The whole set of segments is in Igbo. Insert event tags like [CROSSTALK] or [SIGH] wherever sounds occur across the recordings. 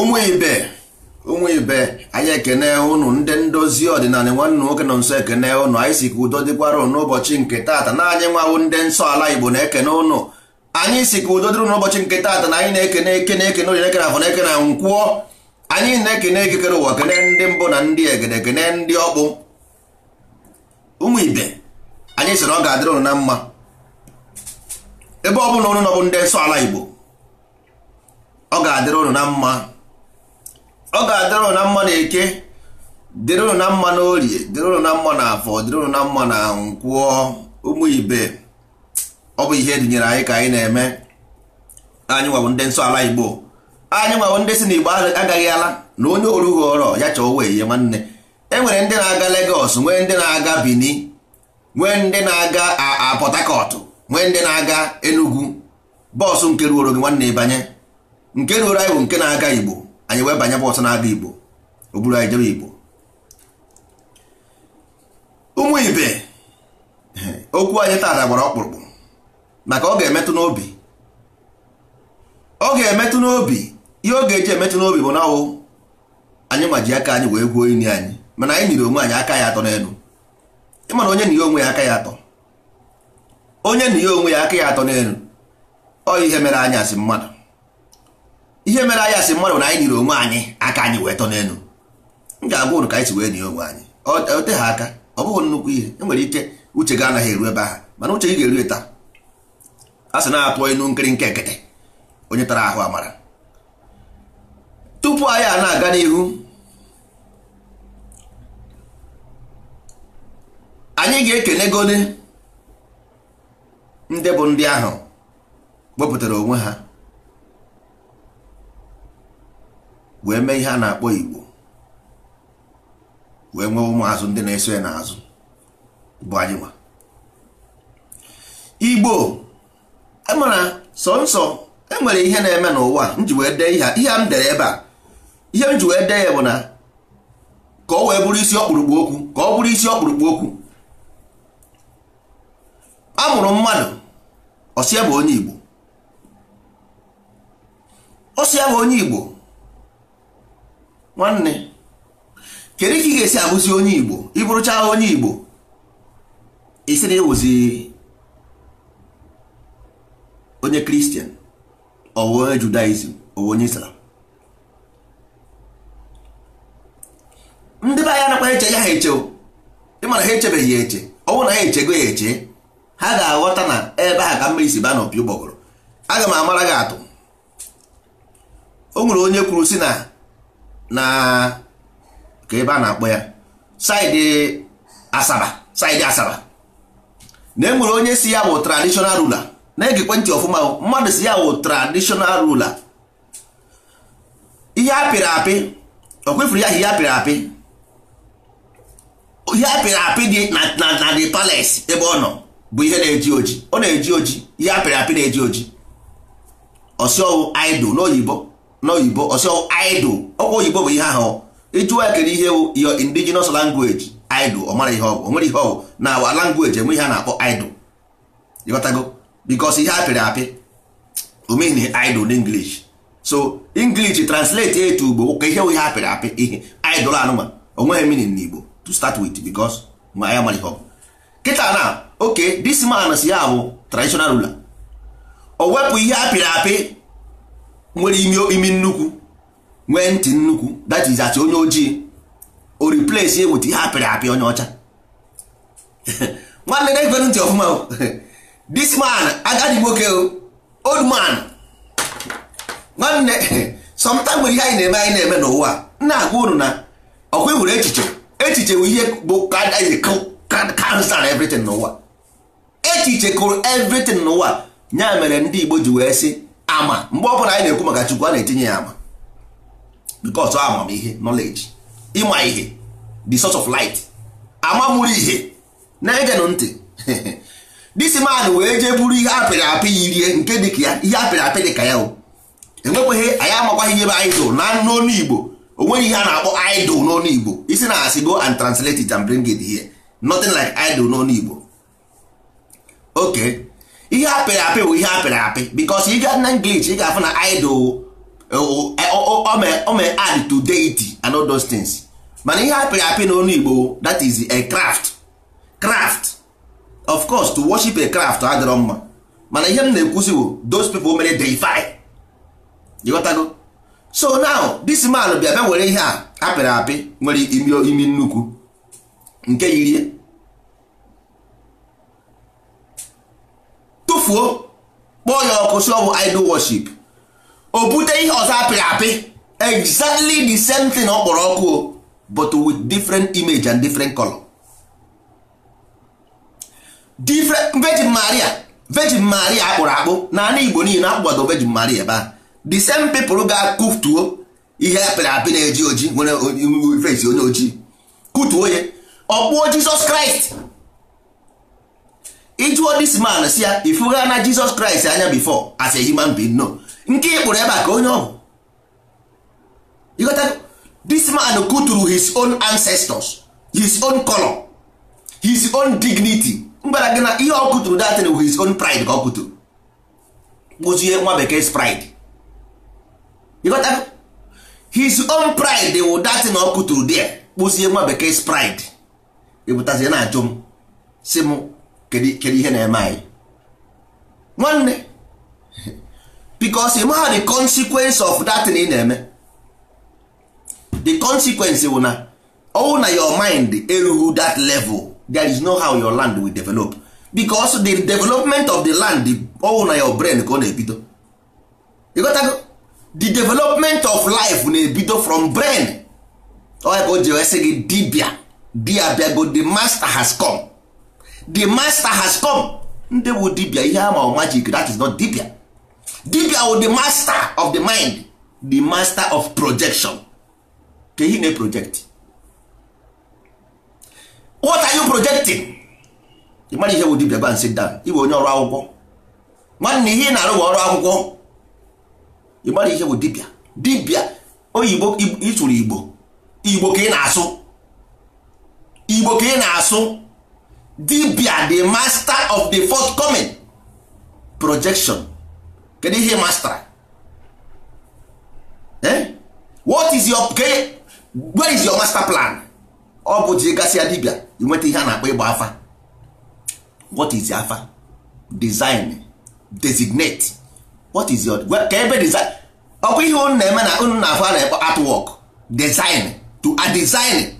ụmụ ibe ụmụ ibe anyị ekene ụnụ ndị ndozi ọdịnala nwanne nwoke nọ nso ekene ụnụ anyị si ka udo dịkwara ụnụ n'ụbọchị nke taata na anyị nwawo ndị nsọ ala igbo na-ekene ụnụ anyị si ka udo dịrị n'ụbọchị nke taata na anyị na-ekene ekene ekene onye ekene afọ na-ekene na nkwụọ anyị na-ekene ekekere ụwa kene ndị mbụ na ndị egede kene ndị ọkpụ ụmụ ibe anyị sịrị ọ ga-adịrị ụnụ na mma ebe ọ bụla ụnụ nọ ndị nsọ ala igbo ọ ga-adịrị ụnụ na mma ọ ga-adịrị ụnụ na mma na eke dịrị ụnụ na mma na orie dịrị ụnụ mma na afọ dịrị ụnụ mma na nkwụọ ụmụ ibe ọ bụ ihe edinyere anyị ka anyị na-eme anyị nwabụ ndị nsọ ala igbo anyị nwabụ ndị si na igbo agaghị ala na onye orughị ọrọ ya chọọ wee ihe nwanne e nwere ndị na-aga Lagos nwee ndị na-aga Benin nwee ndị na-aga Port Harcourt nwee ndị na-aga Enugu bọọsụ nke ruoro gị nwanne ịbanye nke ruoro anyị bụ nke na-aga igbo anyị wee banye bụ ọsọ na-abịa igbo o buru anyị jebe igbo ụmụ ibe [LAUGHS] okwu anyị taata gbara ọkpụrụkpụ maka ọ ga-emetụ n'obi ọ ga-emetụ n'obi ihe ọ ga-eji emetụ n'obi bụ na anyị ma aka anyị wee gwuo ini anyị mana anyị nyere onwe anyị aka ya atọ n'elu ịmana onye na ihe onwe ya aka ya atọ onye na ihe onwe ya aka ya atọ n'elu ọ ihe mere anyị asị mmadụ ihe mere anyị asị mmadụ na anyị nyere onwe anyị aka anyị wee tọ n'elu m ga-agwa ụrụ ka anyị si wee nye onwe anyị e, o te ha aka ọ bụghị nnukwu ihe enwere ike uche gị anaghị eru ebe ahụ mana uche gị ga-eru taa a sị na atụ ịnụ nkiri nke nkịtị onye tara ahụ amara tupu anyị a na-aga n'ihu anyị ga-ekenegone ndị bụ ndị ahụ wepụtara onwe ha wee mee ihe a na-akpọ igbo wee nwee ụmụazụ ndị na-eso ya n'azụ bụ anyị nwa igbo e sọ sọnsọ enwere ihe na-eme n'ụwa m ji wee dee ihe m dere ebe a ihe m ji wee dee ya bụ na ka ọ wee bụrụ isi ọkpụrụkpụ okwu ka ọ bụrụ isi ọkpụrụkpụ okwu a mụrụ mmadụ ọsịa bụ onye igbo ọsịa bụ onye igbo nwanne kedu ka ị ga-esi abụzi onye igbo ịbụrụcha onye igbo isi na ịwụzi onye kristian ọwụ onye judaism ọwụ onye islam ndị be anya nakwa eche ya ha eche ịmara ha echebeghị ya eche ọnwụ na ha echego ya eche ha ga-aghọta na ebe ha ka mmiri si baa n'opi ụgbọgọrọ aga m amara gị atụ o nwere onye kwuru si na na ka ebe a na-akpọ ya saịdị asaba saịdị asaba na e nwere onye si ya bụ traditional ruler na-egekwe ọfụma mmadụ si ya bụ traditional ruler ihe apịrị apị o ya ihe apịrị apị ihe apịrị apị dị na the pales ebe ọ nọ bụ ihe na-eji oji ọ na-eji oji ihe apịrị apị na-eji oji ọsị ọwụ idol n'oyibo n'oyibo ọsọ idol ọkwa oyibo bụ ihe ahụ ịjụwa kedu ihe bụ your indigenous language idol ọ mara ihe ọ bụ o nwere ihe ọ bụ na awa language enwe ihe a na-akpọ idol ịghọtago bikos ihe apịrị apị omeghi idol na english so english translate etu ugbo ka ihe bụ ihe apịrị apị ihe idol anụma onweghị meaning n'igbo to start with bikos ma ya mara ihe ọ bụ kịta na oke dis man si ya bụ traditional ruler o wepụ ihe apịrị apị nwere imi nnukwu nwee ntị nnukwu that is as onye ojii o replace with ihe apịrị apị onye ọcha [LAUGHS] nwanne na ekwere ntị ọfụma [LAUGHS] this man agadi nwoke old man nwanne [LAUGHS] sometimes nwere ihe anyị na-eme anyị na-eme n'ụwa nna agwa unu na ọkwa nwere echiche echiche bụ ihe bụ cancer everything n'ụwa echiche kụrụ everything n'ụwa ya mere ndị Igbo ji wee sị ama mgbe ọ bụla anyị na-ekwu maka chukwu a na-etinye ya ama because amamihe knowledge ịma ihe the source of light ama mụrụ ihe na-egenụ ntị [LAUGHS] this man wee jee buru ihe apịrị apị yirie nke dị ka ya ihe apịrị apị dị ka ya enwekweghị anyị amakwaghị ihe bụ idol na n'onu igbo o nweghị ihe a na-akpọ idol n'onu igbo isi na asị go and translate it and bring it here nothing like idol n'onu igbo okay ihe apịrị apị bụ ihe apịrị apị bikos ị ga na English ị ga-afụ na idol ome add to deity and all those things mana ihe apịrị apị n'ọnụ Igbo that is a craft craft of course to worship a craft adịrọ mma mana ihe m na-ekwuzi bụ those people mere deify ghọtago. so now this man bịa bịa were ihe a apịrị apị nwere imi nnukwu nke yirie tufuo kpọọ ya ọkụ si ọ bụ idol worship o bute ihe ọzọ apịrị apị exactly the same thing ọ kpọrọ ọkụ o but with different image and different color different virgin maria virgin maria akpụrụ akpụ na igbo niile akpụgbado virgin maria ebe a the same people ga-akụtuo ihe apịrị apị na-eji oji nwere onye ojii kụtuo ya ọkpụọ jizọs kraịst ịjụọ this man si ya ah, ifuga na Jesus Christ anya before as a human being no nke ịkpụrụ e ebe a ka onye ọbụ this man kuturu his own ancestors his own color his own dignity mgbara gị na ihe ọ kuturu datin his own pride ka ọ kuturu kpụzie nwa bekee pride his own pride wụ datin ọ kuturu there kpụzie nwa bekee pride ịbụtazie na ajụ m si m kedu ihe na-eme anyị nwanne because ịma the consequence of that thing ị na-eme the consequence bụ na ọwụ na your mind erughị that level there is no how your land will develop because the development of the land owu na your brain ka ọ na-ebido ịgotago the development of life na-ebido from brain ọ oh, ebe o ji wee sị gị dibia dia bịago the master has come the master has come ndị bụ dibia ihe ama magic that is not dibia dibia wụ the master of the mind the master of projection ka ihe na-project what are you projecting ị mara ihe bụ dibia ban sit down ịbụ onye ọrụ akwụkwọ nwanne ihe ị na-arụ bụ ọrụ akwụkwọ ị mara ihe bụ dibia dibia oyibo ịtụrụ igbo igbo ka ị na-asụ igbo ka ị na-asụ dibia the master of the forthcoming projection kedu ihe master? eh? what is your ke where is your master plan ọ bụ ji gasị ya dibia inweta ihe a na-akpọ ịgba afa what is afa design designate what is your ka ebe design ọkwa ihe unu na-eme na unu na-afọ a na-ekpọ artwork design to a design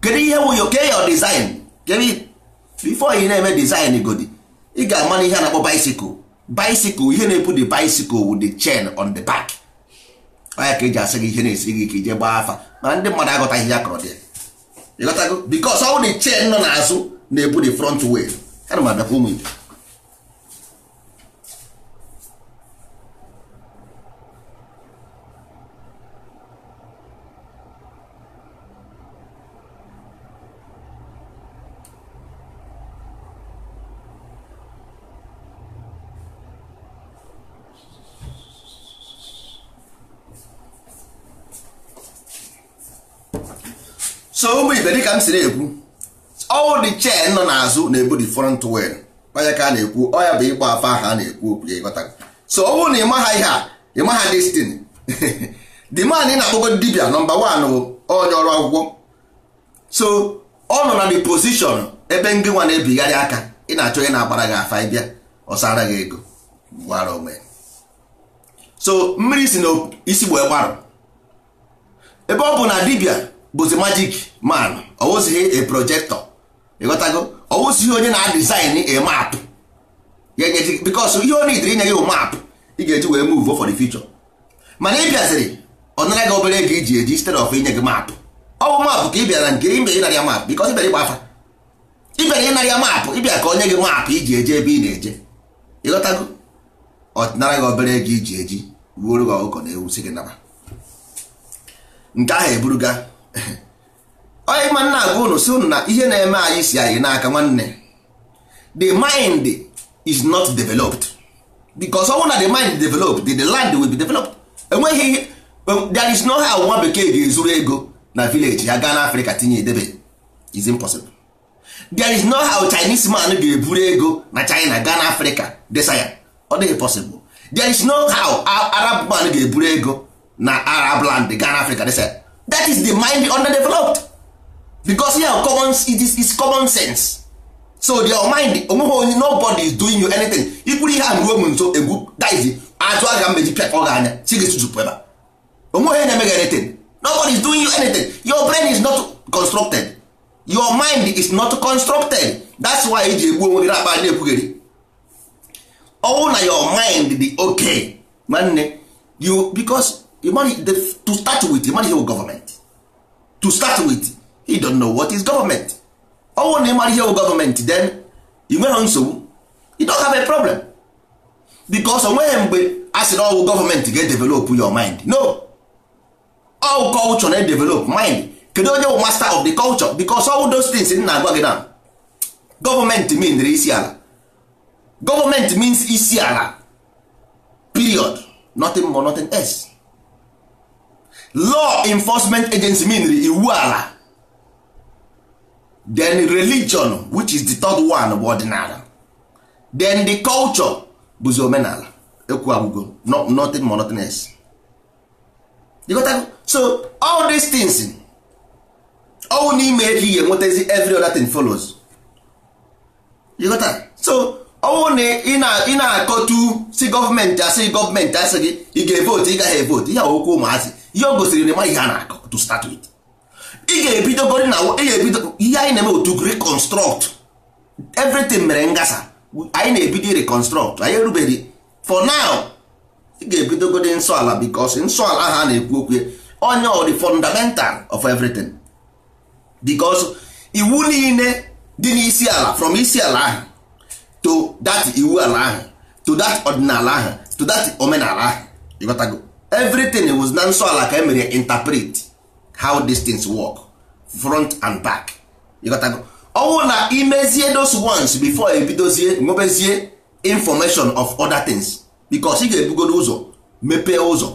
kedu ihe bụ your your design kedu before ị na-eme design godi ị ga amana ihe a na-akpọ bicycle bicycle ihe na-ebu the bicycle wu the chain on the back anya ka eji asị gị ihe na esi gị ka ije gbaa afa ma ndị mmadụ aghọtaghị ya kọrọ dị ịghọtago because ọ bụ the chain nọ n'azụ na-ebu the front wheel ha na ụmụ igbo so ụmụ ibe dịka m si na-ekwu ọwụ dị chen nọ n'azụ na-ebu di front wheel kpanya ka a na-ekwu ọ bụ ịgba afa ahụ a na-ekwu okwu ya ịghọta so ọwụ na ịmaha ihe a ịmaha destin [LAUGHS] the man ị na-akpọgo dibia nọmba wan bụ onye ọrụ akwụkwọ so ọ nọ na di position ebe ndị nwa na-ebigharị aka ị na-achọ ị na-agbara gị afa ịbịa ọsara gị ego gbara onwe so mmiri si na isi gbo gbarụ ebe ọ bụ na dibia bụzi magic man ọwụzighị a projector ịghọtago ọwụzighị onye na-adizin a map because ihe ọ nidiri inye gị map ị ga-eji wee move for the future mana ị bịaziri ọ nara gị obere ego iji eji instead of inye gị map ọ bụ map ka ị bịara nke ime ịnara ya map because ịbịara ịgbafa ịbịara ịnara ya map ịbịa ka onye gị map iji eje ebe ị na-eje ịghọtago ọ nara gị obere ego iji eji wuoro gị ọkụkọ na ewu si gị naba nke ahụ eburuga onye [COUGHS] ma nna agwa unu si unu na ihe na-eme anyị si anyị n'aka nwanne the mind is not developed because ọnwụ na the mind developed the, the land will be developed enweghị um, there is no how nwa bekee ga-ezuru ego na village ya gaa n'afrịka tinye edebe is impossible there is no how chinese man ga-eburu ego na china gaa n'afrịka desaya. ọ dịghị possible there is no how arab man ga-eburu ego na arab land gaa n'afrịka desa that is the mind underdeveloped because you have common it is, is common sense so your mind onweghị onye nobody is doing you anything ikwuru ihe a ruo m nso egwu dive atụ aga mmeji pịa ọ ga-anya si gị tutu pụba onweghị onye na-eme gị anything nobody is doing you anything your brain is not constructed your mind is not constructed that's why eji egbu onwe gị na-akpa na-ekwugheri ọnwụ na your mind dị okay nwanne you because to start with ịmara ihe wụ gọọmenti to start with he don't know what is government ọnwụ na ịmara ihe wụ gọọmenti then ị nweghị nsogbu you don't have a problem because onweghị mgbe a sị na ọwụ oh, gọọmenti ga-edevelop your mind no all culture na-edevelop mind kedu onye wụ master of the culture because all those things m na-agwa gị na gọọmenti means isi ala gọọmenti means isi ala period nothing more nothing else law enforcement agency mean iwu ala then religion which is the third one bụ ọdịnala then the culture bụzi omenala ekwu agwụgo nothing more nothing less you got so all these things ọwụ n'ime elu ihe nwetazi every other thing follows you got that? so ọnwụ na ị na-akọtu si gọọmenti asị gọọmenti asị gị ị ga-evotu ị gaghị evotu ihe okwu ụmụazị ihe o gosiri na ihe a na-akọ to start with ị ga-ebidogori na ebido ihe anyị na-eme otu reconstruct everything mere ngasa anyị na-ebido reconstruct anyị erubeghị for now ị ga-ebidogori nsọ ala because nsọ ala ha na-ekwu okwu onye o di fundamental of everything because iwu niile dị n'isi ala from isi ala ahụ to that iwu ala ahụ to that ọdịnala ahụ to that omenala ahụ ịghọtago everything was na nsọ ala ka emere interpret how these things work front and back ọwụ oh, na imezie those ones before ebidozie nwebezie information of other things because ị ga-ebugodo ụzọ mepee ụzọ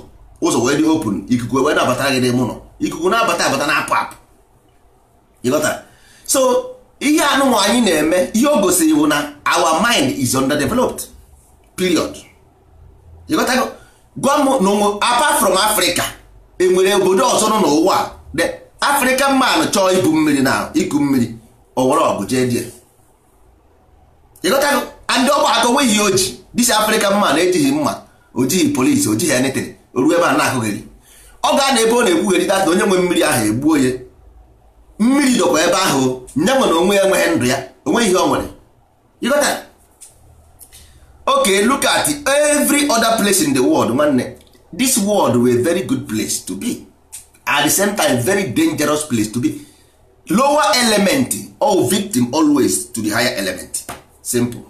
ụzọ wee dị open ikuku wee na-abata gị n'ime ụlọ ikuku na-abata abata na apụ apụ so ihe anụnwa anyị na-eme ihe o gosiri bụ na our mind is underdeveloped period gwa m n'ụmụ apa from Africa enwere obodo ọzọ nọ n'ụwa the African man chọọ ibu mmiri na iku mmiri owere ọgụ jee die ịgọtago ndị ọgba aka onweghị oji dis African man ejighị mma ojighị polisi ojighị anything oruo ebe a na-ahụghịrị ọ ga na ebe ọ na-ekwugheri data onye nwe mmiri ahụ egbuo ya mmiri dọkwa ebe ahụ nye na onwe ya enweghị ndụ ya onweghị ihe ọ nwere ịgọta okay look at every other place in the world nwanne this world were very good place to be at the same time very dangerous place to be lower element or victim always to the higher element simple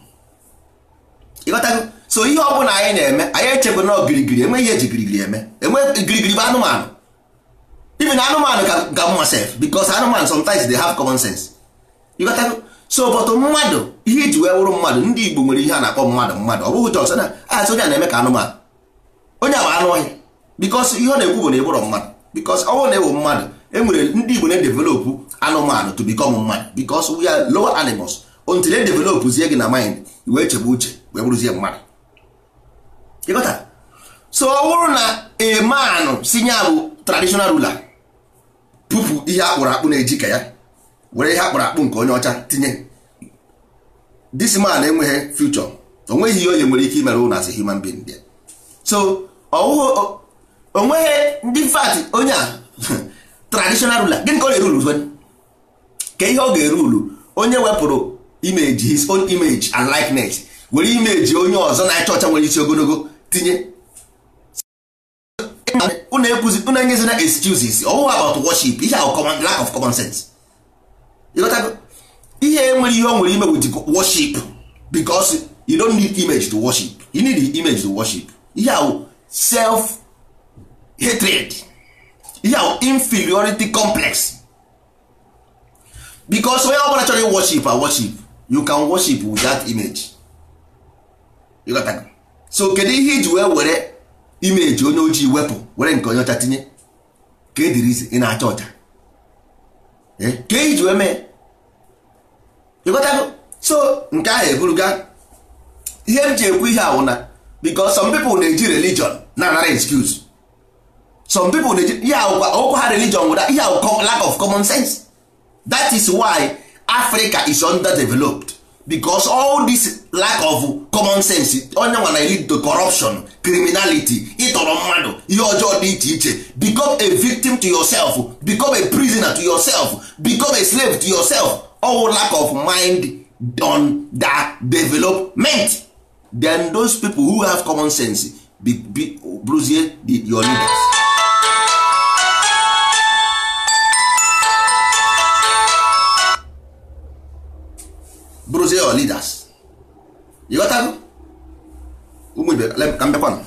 ịghọtago so ihe ọ bụla anyị na-eme anyị echebe na ogirigiri enweghị eji girigiri eme enwe girigiri bụ anụmanụ even anụmanụ ga mma sef because anụmanụ sometimes they have common sense ịghọtago so but mmadụ ihe iji wee wụrụ mmadụ ndị Igbo nwere ihe a na-akpọ mmadụ mmadụ ọ bụghị jọs na asị onye a na-eme ka anụmanụ onye a anụ ọhịa bikọs ihe ọ na-ekwu bụ na ịbụrụ mmadụ bikọs ọ bụrụ na ewu mmadụ e nwere ndị Igbo na-edevelopụ anụmanụ to become mmadụ bikọs we are lower animals until e zie gị na mind wee chebe uche wee bụrụzie mmadụ ịgọta so ọ bụrụ na emanụ si nya bụ traditional ruler pụpụ ihe akpụrụ akpụ na-eji ka ya were ihe akpụrụ akpụ nke onye ọcha tinye this man enweghị future onweghị ihe onye nwere ike imere ụnụ as a human being there so onweghị ndị fat onye a [LAUGHS] traditional ruler gịnị ka ọ na eru zwen ka ihe ọ ga-erulu eru onye wepụrụ image his own image and likeness were image onye ọzọ na achọ ọcha nwere isi ogologo tinye unu ekwuzi unu enyezina excuses ọwụwa about worship ihe a lack of common sense ihe nwere ihe o nwere ime with worship because you don need image to worship you need the image to worship ihe ahụ self hatred ihe ahụ inferiority complex because onye ọbụla chọrọ worship a worship you can worship with that image you got that? so kedu ihe iji wee were image onye ojii wepụ were nke onye ọcha tinye ka edirizi ị na-acha ọcha eh? ka iji e wee mee ịghọtago so nke ahụ eburuga ihe m ji ekwu ihe awụna because some people na-eji religion na anara excuse some people na-eji ihe ọkwa ha religion wụda ihe awụ lack of common sense that is why Africa is underdeveloped because all this lack of common sense onye nwa na lead to corruption criminality ịtọrọ mmadụ ihe ọjọọ dị iche iche become a victim to yourself become a prisoner to yourself become a slave to yourself all lack of mind don that development then those people who have common sense be, be, bruzie your leaders bruzie your leaders you got ụmụ ibe ka mbekwanụ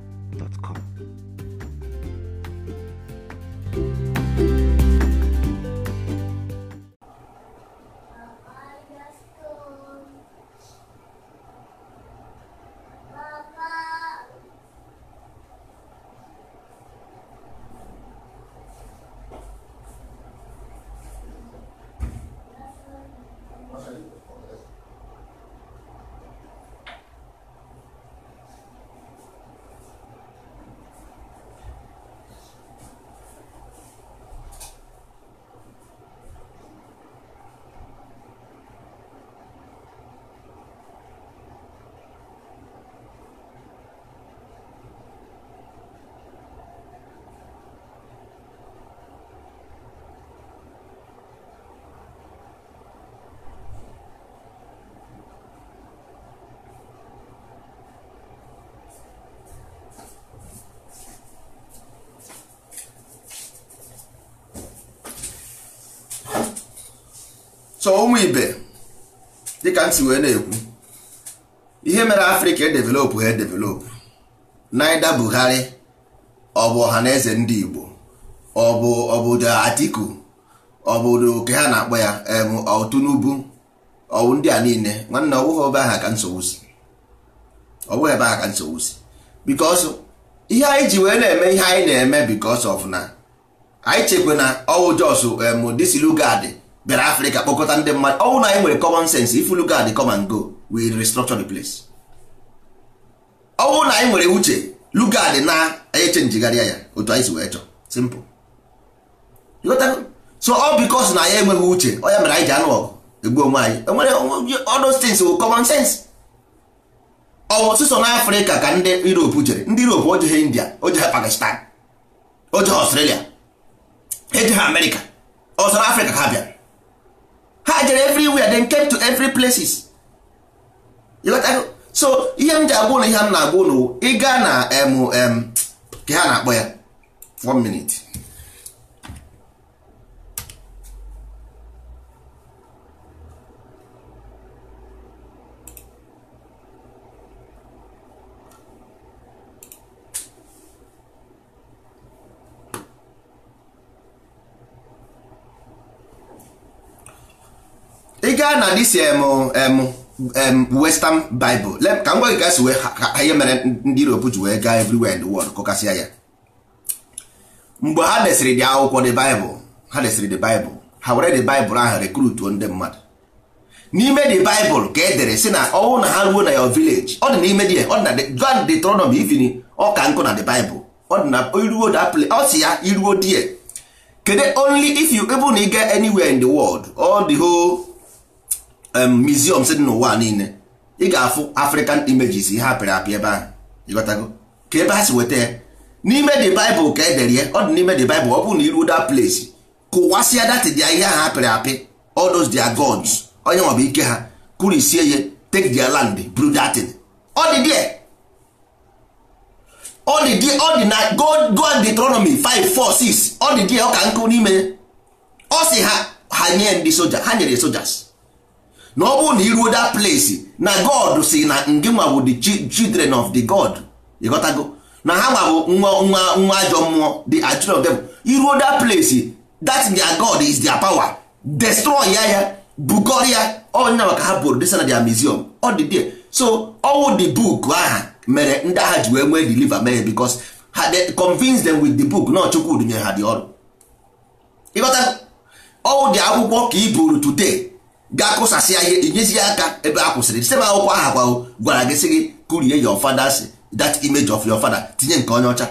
gmail.com. m si wee na-ekwu ihe mere afrịka edevelopụ ha edevelopụ naida buhari ọ bụ eze ndị igbo ọ bụ obodo atiku obodo oke ha na-akpọ ya otunubu ọwụ ndị a niile nwanne ọ bụghị ebe aha ka nsogbu si ọ bụghị ebe aha ka nsogbu si because ihe anyị ji wee na-eme ihe anyị na-eme because of anyị chekwa na ọwụ jos em disilugadi bịara afrịka kpọkọta ndị mmadụ ọ na anyị nwere common sense if you look at the come and go we restructure the place ọ na anyị nwere uche look at the na echenjigharịa ya otu anyị si wee chọọ simple so ọ because na ya enweghị uche ọ ya mere anyị ji anụ ọgụ egbu onwe anyị enwere odos things bụ oh, common sense ọwụ sụsọ na afrịka ka ndị europe jere ndị europe ojeghị india ojeghị pakistan ojeghị australia ejeghị amerịka ọsọ na afrịka ka ha bịara ha jere everywhere then came to every places so ihe m ji agwa ụlọ ihe m na-agwa ụlọ ịga na em ka ha na-akpọ ya 1 minute ị gaa na dis western bible ka m gwa gị ka e si ihe mere ndị europe ji wee everywhere in the world kọkasịa ya mgbe ha desịrị dị akwụkwọ the bible ha desịrị the bible ha were the bible ahụ rekrutuo ndị mmadụ n'ime the bible ka e dere si na ọnwụ na ha ruo na your village ọ dị n'ime dị ọ na John ivin ọka nkụ na the bible ọ na iruo ya iruo die only if you able na ị ga anywhere in the world museum dị n'ụwa niile ị ga-afụ african images ihe apịrị apị ebe ahụ ịghọtago ka ebe ha si weta ya n'ime the bible ka edere ya ọ dị n'ime the bible ọ bụrụ na iruo that place kụwasịa datịda ihe ahụ apịrị apị all those their gods onye nwabụ ike ha kurisie ya take their land brew that thing ọ dị there ọ dị there ọ dị na go and Deuteronomy 5 4 6 ọ dị there ọ ka nkụ n'ime ọ si ha ha nye ndị soja ha nyere sojas na ọ bụrụ na iruo that place na god si na ndị nwa bụ the children of the god ịghọtago na ha nwa bụ nwa nwa nwa ajọ mmụọ the children of them iruo that place that their god is their power destroy ya ya bugor ya ọnya maka ha bụrụ desa na their museum ọ dị there so ọwụ the book aha mere ndị agha ji wee nwee deliver mere because ha convince them with the book na Chukwu nyere ha dị ọrụ ịghọta ọwụ dị akwụkwọ ka i buru today ga kụsasị ya ihe inyezi aka ebe a kwụsịrị site akwụkwọ aha gwago gwara gị sị gị kurie your father's that image of your father tinye nke onye ọcha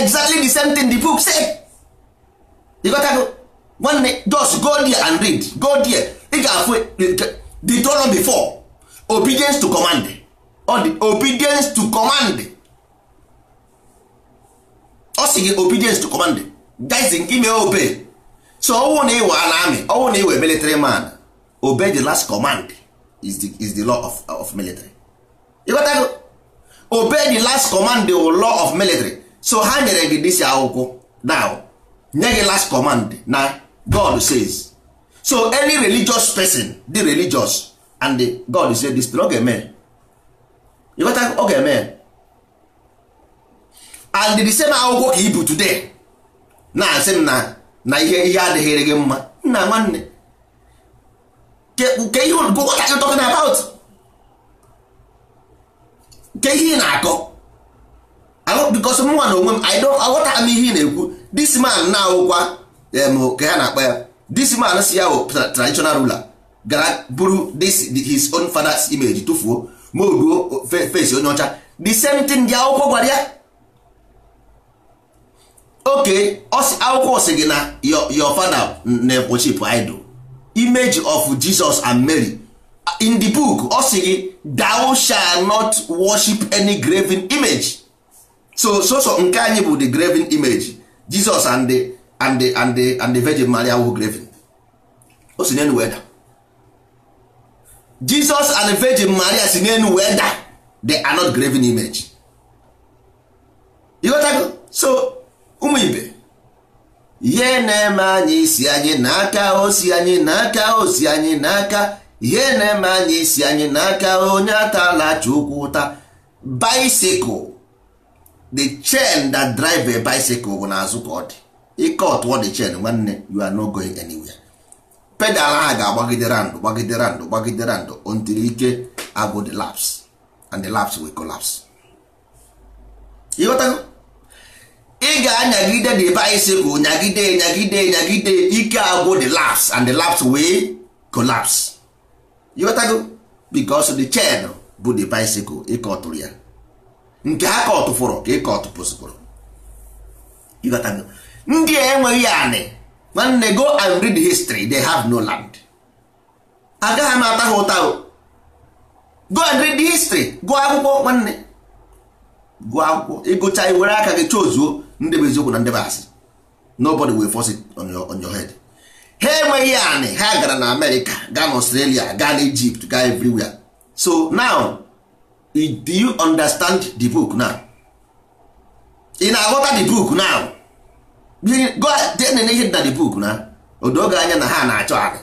exactly the same thing the book say ịgotago nwanne just go there and read go there ị ga-afụ Deuteronomy 4 obedience to command ọ dị obedience to command ọ sị gị obedience to command guys ime obey so ọwụ na ịwa na amị ọwụ na ịwa military man obey the last command is the, is the law of, of military ịghọtago obey the last command the law of military so ha nyere gị dịsi akwụkwọ now nye gị last command na god says so any religious person dị religious and the god say this ọ ga-eme ịghọtago ọ ga-eme and the same akwụkwọ ka ibu today na-asị m na na ihe ihe adịghịrị gị mma nna nwanne ke ihe go what are you talking about ke ihe ị na-akọ bikos mụnwa na onwe m i don't aghọta m ihe ị na-ekwu this man na-awụkwa ka ha na-akpa ya this man si ya traditional ruler gara buru this his own father's image tụfuo ma oruo face onye ọcha the same thing dị akwụkwọ gwara ya oke akwụkwọ si gị na your father na-ekwochip idol image of Jesus and Mary in the book ọ sị gị thou shall not worship any graven image so so so nke anyị bụ the graven image Jesus and the and the and the and the Virgin Maria were graven o si n'elu weda Jesus and the Virgin Maria si n'elu weda they are not graven image you got that? so ụmụ ibe ihe na-eme anyị isi anyị n'aka osi anyị n'aka osi anyị n'aka ihe na-eme anyị isi anyị n'aka onye atọ na-achọ ụkwụ ụta bicycle the chain that drive a bicycle bụ n'azụ ka ọ dị ike ọtụọ the chain nwanne you are no going anywhere pedal ahụ ga-agbagide randụ gbagide randụ gbagide randụ until ike agụ the laps and the laps will collapse ịghọtago ị ga-anyagide the bicycle nyagide nyagide nyagide ike agwụ the laps and the laps wee collapse ịghọtago because the chain bụ the bicycle ịkọtụrụ ya nke ha kọtụfụrụ ka ịkọtụpụsịpụrụ ịghọtago ndị a enweghị anị nwanne go and read the history they have no land agaghị m ata ha ụta go and read the history gụọ akwụkwọ nwanne gụọ akwụkwọ ịgụcha iwere aka gị ozuo. ndị bụ eziokwu na ndị bụ asị nobody will force it on your, on your head ha enweghị anị ha gara na amerịka gaa na australia gaa na egypt gaa everywhere so now do you understand the book now ị na-aghọta the book now ihe dị na the book na odoge anya na ha na-achọ anị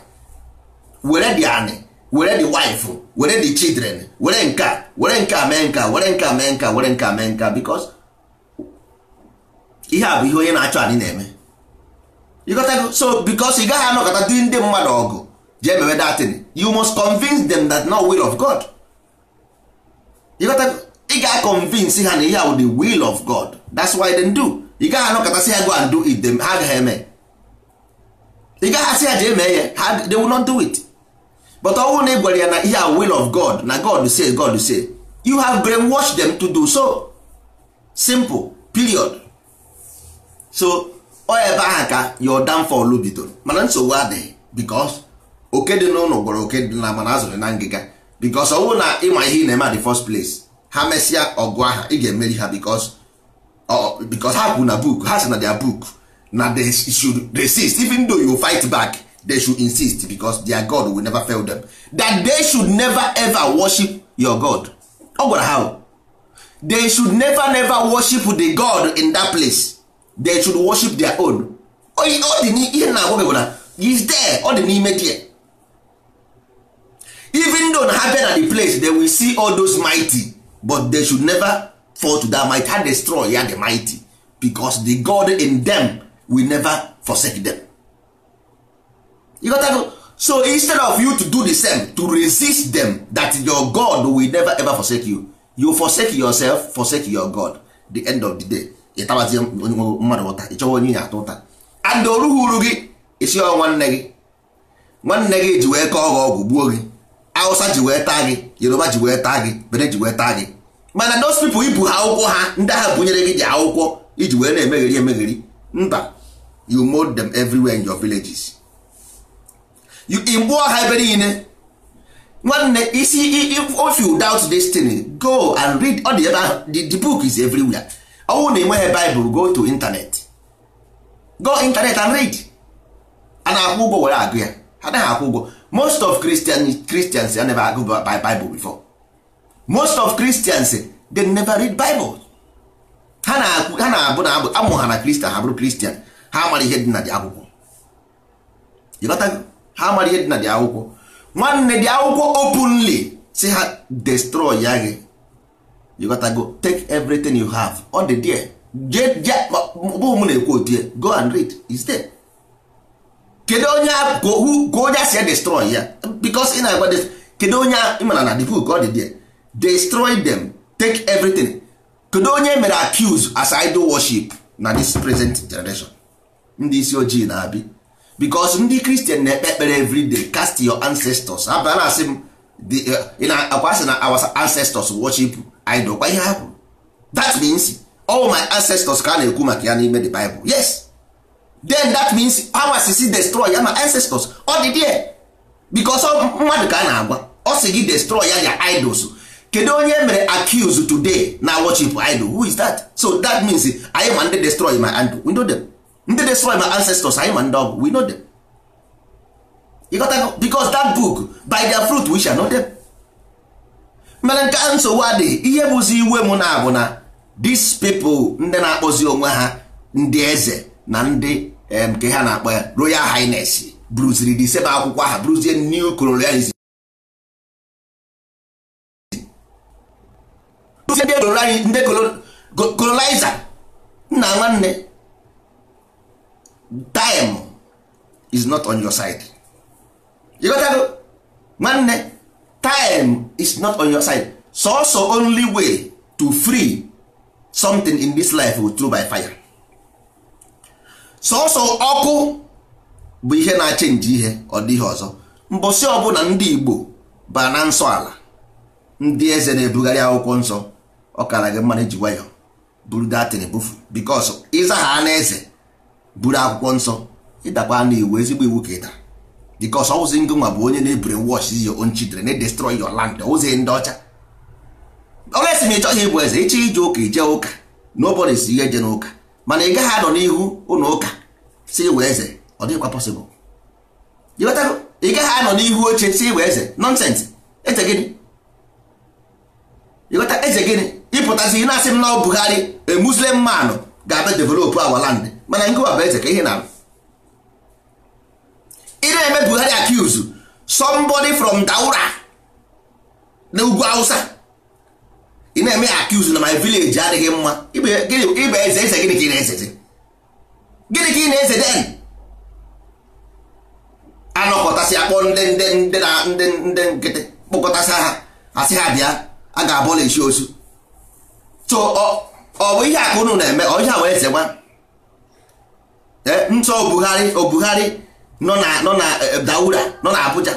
were the anị were the wife were the children were nka were nka mee nka were nka mee nka were nka mee nka because ihe a bụ ihe onye na-achọ anyị na-eme so because ị gaghị anọkọta dị ndị mmadụ ọgụ jee mewe datin you must convince them that not will of God ịghọtago ị ga-convince ha na ihe bụ the will of God that's why they do ị gaghị anọkọtasị ha go and do it them ha agaghị eme ị gaghị asị ha jee mee ya ha they will not do it but ọ bụrụ na ị ya na ihe a will of God na God say God say you have brainwashed them to do so simple period so ọ ebe ahụ ka your downfall bidoro mana nsogbu adịghị because oke dị n'ụlọ gwara oke dị na mana azụrụ na ngịga because ọnwụ na ịma ihe ị na-eme the first place ha mesịa ọgụ aha ị ga-emeri ha because ha kwụ na book ha si na dia book na dey should resist even though you fight back they should insist because their God will never fail them that they should never ever worship your God ọ gwara ha they should never never worship the God in that place they should worship their own ọ dị n'ihe na agwa bụ na is there ọ dị n'ime there even though na ha bịa na the place they will see all those mighty but they should never fall to that might ha destroy ya the mighty because the God in them will never forsake them. You got that? so instead of you to do the same to resist them that your God will never ever forsake you you forsake yourself forsake your God the end of the day ịtabazie mmadụ ụta ịchọwa onye ya atụ ụta adị orughị uru gị isi ọ nwanne gị nwanne gị ji wee kọọ gị ọgwụ gbuo gị awụsa ji wee taa gị Yoruba ji wee taa gị bere ji wee taa gị mana those people ibu ha akwụkwọ ha ndị ahụ bụnyere gị dị akwụkwọ iji wee na-emegheri emegheri mba you mold them everywhere in your villages you igbuo ha ebe niile nwanne isi if you doubt this thing go and read ọ dị ebe ahụ the book is everywhere ọnwụ na enweghị baịbụl go to internet go internet and read a na-akwụ ụgwọ were agụ ya ha anaghị akwụ ụgwọ most of Christian, Christians they never agụ Bible before most of Christians they never read Bible ha na-abụ na amụ ha na Christian ha bụrụ Christian ha amara ihe dị na dị akwụkwọ ịghọtago ha amara ihe dị na dị akwụkwọ nwanne dị akwụkwọ openly si ha destroy ya gị you gotta go take everything you have all the there bụ m na-ekwu otu ya go and read is there kedu onye go onye si ya destroy ya because ị na-agwa kedu onye ịmana na the book ọ dị there destroy them take everything kedu onye mere accuse as idol worship na this present generation ndị isi ojii na-abi because ndị kristian na-ekpe ekpere everyday cast your ancestors abịa asị m eh, akwa asị na our ancestors worship anyị dokwa ihe ha kwuru that means all my ancestors ka a na-ekwu maka ya n'ime the Bible yes then that means our sisi destroy ya ma ancestors ọ dị there because mmadụ ka a na-agwa ọ sị gị destroy ya ya idols kedu onye mere accuse today na worship idol who is that so that means anyị ma ndị destroy my idol we know them ndị destroy my ancestors anyị ma ndị ọgụ we know them because that book by their fruit we shall know them. mere nke nsogbu adị ihe bụzi iwe m na abụ na dis people ndị na-akpọzi onwe ha ndị eze na ndị nke ha na-akpọ ya royal highness bruziri sebe akwụkwọ aha bruzie new colonialism ndị colonizer nna nwanne time is not on your side ịghọtago nwanne time is not on your side so, only way to free something in this life will through by fire sọsọ ọkụ bụ ihe na-achenji ihe ọ dịghị ọzọ mbọsị ọbụla ndị Igbo ba na nsọ ala ndị eze na-ebugharị akwụkwọ nsọ ọkara kara gị mmanụ ji wayo buru datin ebufu bikos ịza ha na eze buru akwụkwọ nsọ ịdakwa na iwu ezigbo iwu ka ịdara because ọwụzi ngị bụ onye na-ebure wash your own children na destroy your land ozi ndị ọcha olesi m ị chọghị ịbụ eze ịchọ ije ụka ije ụka nobody si ihe je n'ụka mana ị gaghị anọ n'ihu ụlọ ụka si iwe eze ọ dịghịkwa possible ị gaghị anọ n'ihu oche si iwe eze nonsense eze gịnị ịghọta eze gịnị ịpụtazi na-asị m na ọ Buhari a Muslim man ga-abịa develop our land mana ngịwa bụ eze ka ihe na-abụ ị na-eme Buhari accuse somebody from Daura na ugwu Hausa ị na-eme accuse na my village adịghị mma ibe eze eze gịnị ka ị na-ezeze gịnị ka ị na-ezede anọkọtasị akpọ ndị ndị ndị na ndị ndị nkịtị kpọkọtasị ha asị ha bịa a ga-abụla esi osu so ọ bụ ihe aka unu na-eme ọ ihe a wee zegba ntọ Obuhari Obuhari. nọ na nọ na daura nọ na Abuja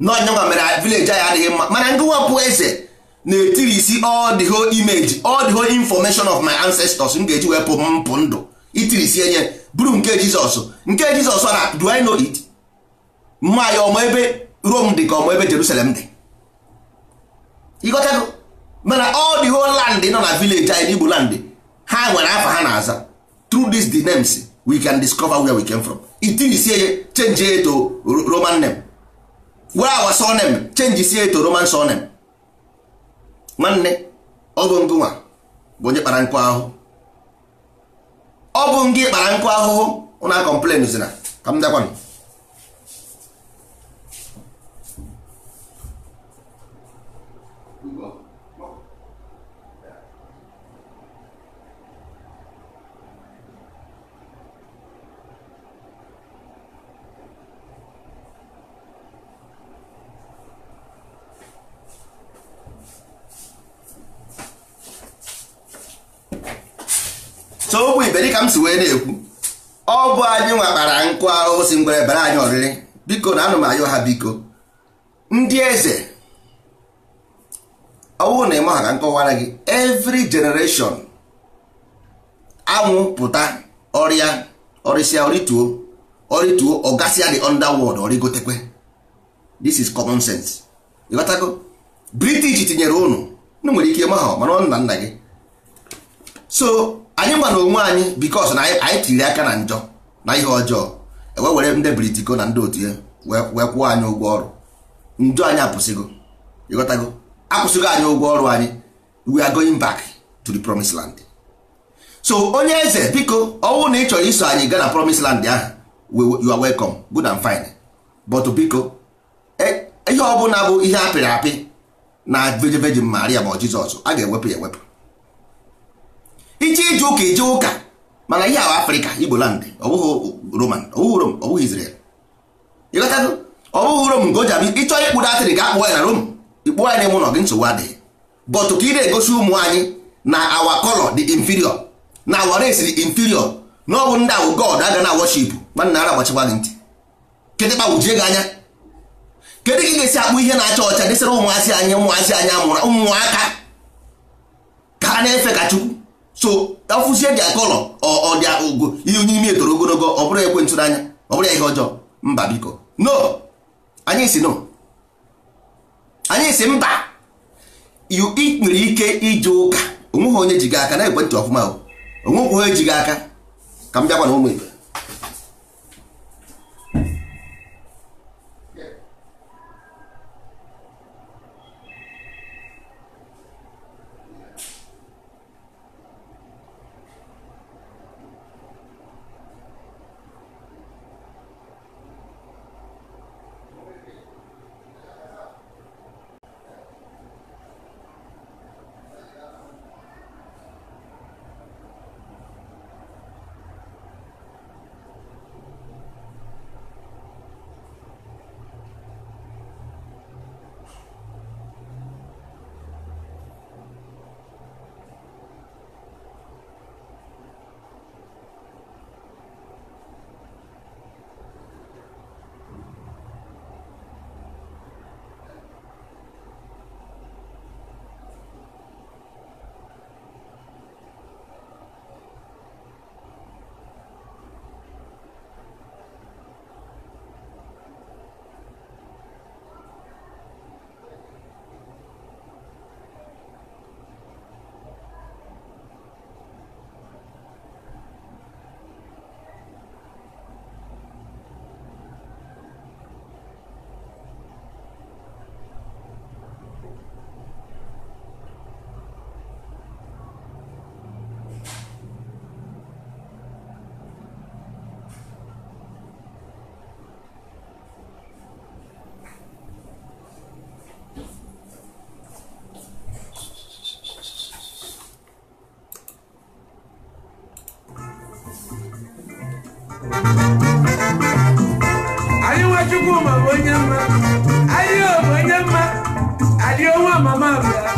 nọnyanwa mere vileji anyị adịghị mma mana ngụwapụ eze na-etiri isi all imeji whole image all the whole information of my ancestors m ga-eji wepụ mpụ ndụ itiri isi enye buru nke Jizọs nke Jizọs na do I know it mma ya ọmụ ebe Rom dị ka ọmụ ebe Jerusalem dị ịghọtago mana all the whole nọ na vileji anyị na landị ha nwere afa ha na-aza through these the names we can discover where we came from itirisie change it to roman name were our name change sie to roman name. nwanne ọ bụ ngụnwa bụ onye kpara nkụ ahụhụ ọ bụ ngị kpara nkụ ahụhụ ụna complain zina ka m dakwanụ so okwu ibe dịka m si wee na-ekwu ọ bụ anyị nwakpara nkụ ahụhụ si ngwere bara anyị ọrịrị biko na anụ m ha biko ndị eze ọwụ na ịma ka nkọwara gị every generation anwụ pụta ọrịa ọrịsịa ọrịtuo ọrịtuo ọgasịa the underworld ọrịgotekwe this is common sense ịghọtago british tinyere ụnụ unu nwere ike ịma ha mana ọ nna nna gị so anyị gwa onwe anyị bikos na anyị tiri aka na njọ na ihe ọjọọ ewe were ndị britiko na ndị otu ya wee kwụọ anyị ụgwọ ọrụ njọ anyị apụsịgo ịghọtago akwụsịgo anyị ụgwọ ọrụ anyị we are going back to the promised land so onye eze biko ọnwụ na ị chọrọ iso anyị gaa na promised land ahụ you are welcome good and fine but biko e, ihe ọbụla bụ ihe apịrị apị na veji Maria bụ Jizọs a ga-ewepụ ya ewepụ iche ije ụka ije ụka mana ihe ahụ afrịka igbo land ọ bụghị roman ọ bụghị rom ọ bụghị israel ịghọtago ọ ịchọ atịrị ga akpụ ya na rom ikpụọ ya na-eme ụlọ gị nsogbu adịghị but ka ị na-egosi ụmụ anyị na awa kọlọ dị inferior na awa race dị inferior na ndị awụ god aga na worship nwanna ara agbachikwa gị ntị gị anya kedu ka ị ga-esi akpụ ihe na-acha ọcha ụmụazị anyị ụmụazị ụmụaka ka na-efe ka so afụzie dị akọlọ ọ dị ogo ihe onye ime etoro ogologo ọ bụrụ ekwe ntụrụ anya ọ bụrụ ihe ọjọọ mba biko no anyị si no anyị si mba nwere ike ije ụka onweghị onye ji gị aka na ekwentị ọfụma o onwekwu onye ji gị aka ka m bịakwa ụmụ Chukwuma bụ onye mma ahịa bụ onye mma adịọnwa mama bịara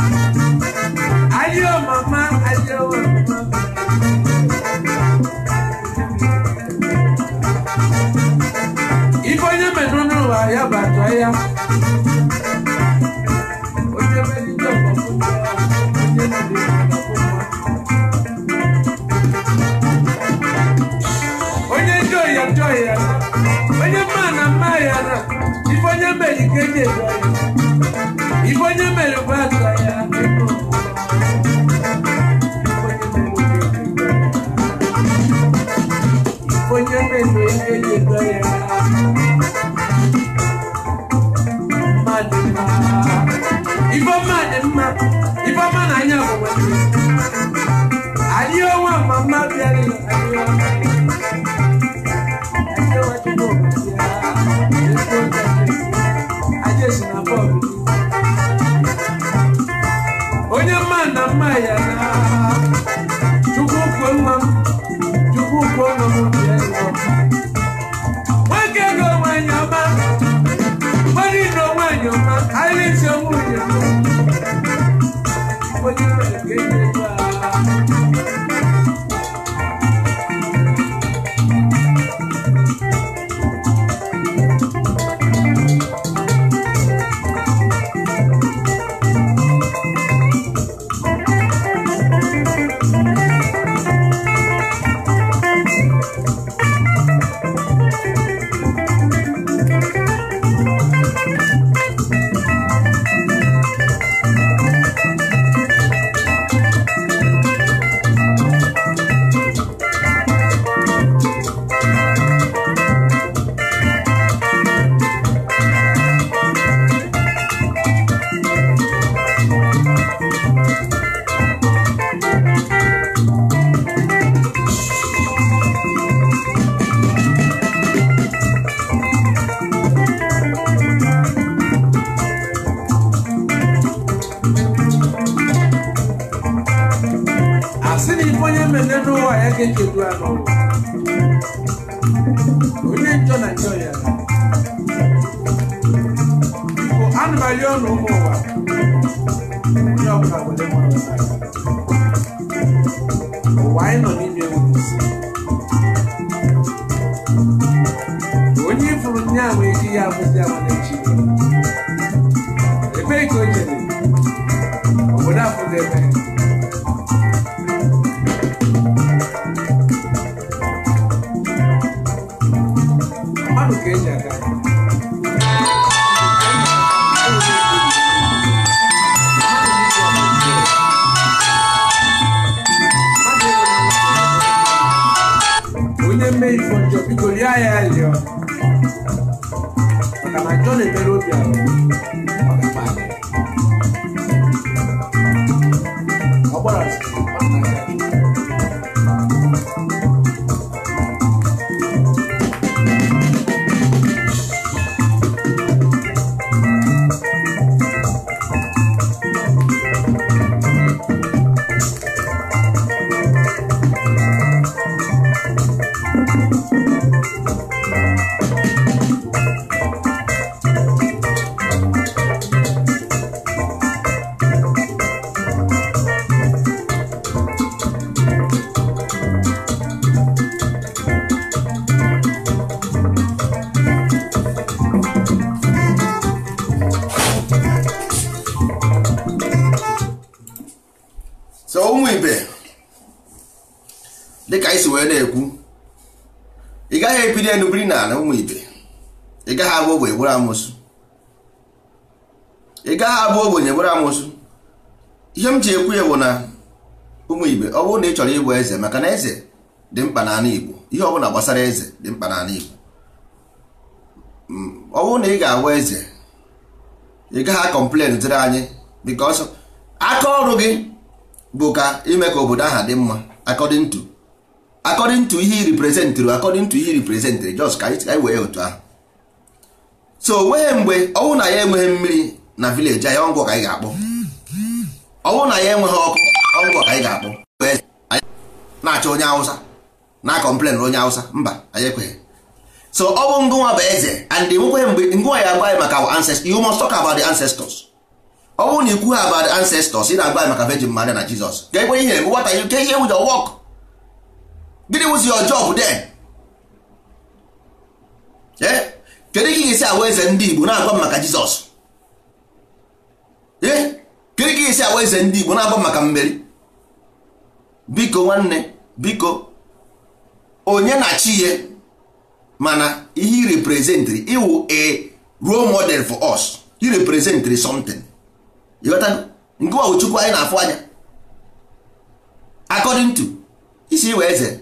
ife mere bụ aka ya onye ya na ya gbasara eze dị mkpa n'ala Igbo mm, ọ bụrụ na ị ga agwa eze ị gaghị akọmplen dịrị anyị bikos aka ọrụ gị bụ ka ime ka obodo ahụ dị mma according to according to ihe i reprezentịrị according to ihe i reprezentịrị just ka anyị wee otu ahụ so onweghị mgbe ọnwụ na ya enweghị mmiri na vileji anyị ọngwụ ka anyị ga-akpọ ọnwụ na ya enweghị ọkụ ọngwụ ka anyị ga-akpọ na-achọ onye Awụsa na complain onye Hausa mba anyị ekweghị so ọ bụ ngụnwa bụ eze and enwekweghị mgbe ngụnwa ya agbaghị maka ancestors you must talk about the ancestors ọ bụrụ na ikwu ha about the ancestors ị na-agbaghị maka Virgin Maria na Jizọs ga-ekwe ihe what are you ihe with your work gịnị was your job then eh? kedu ka ị ga-esi ahụ eze ndị Igbo na-agba maka Jizọs ee eh? kedu ka ị ga-esi ahụ eze ndị Igbo na-agba maka mmeri biko nwanne biko onye na-achị ya mana he represent iwu a role model for us he represent something ịghọta nke ọwụ chukwu anyị na-afụ anya according to isi iwe eze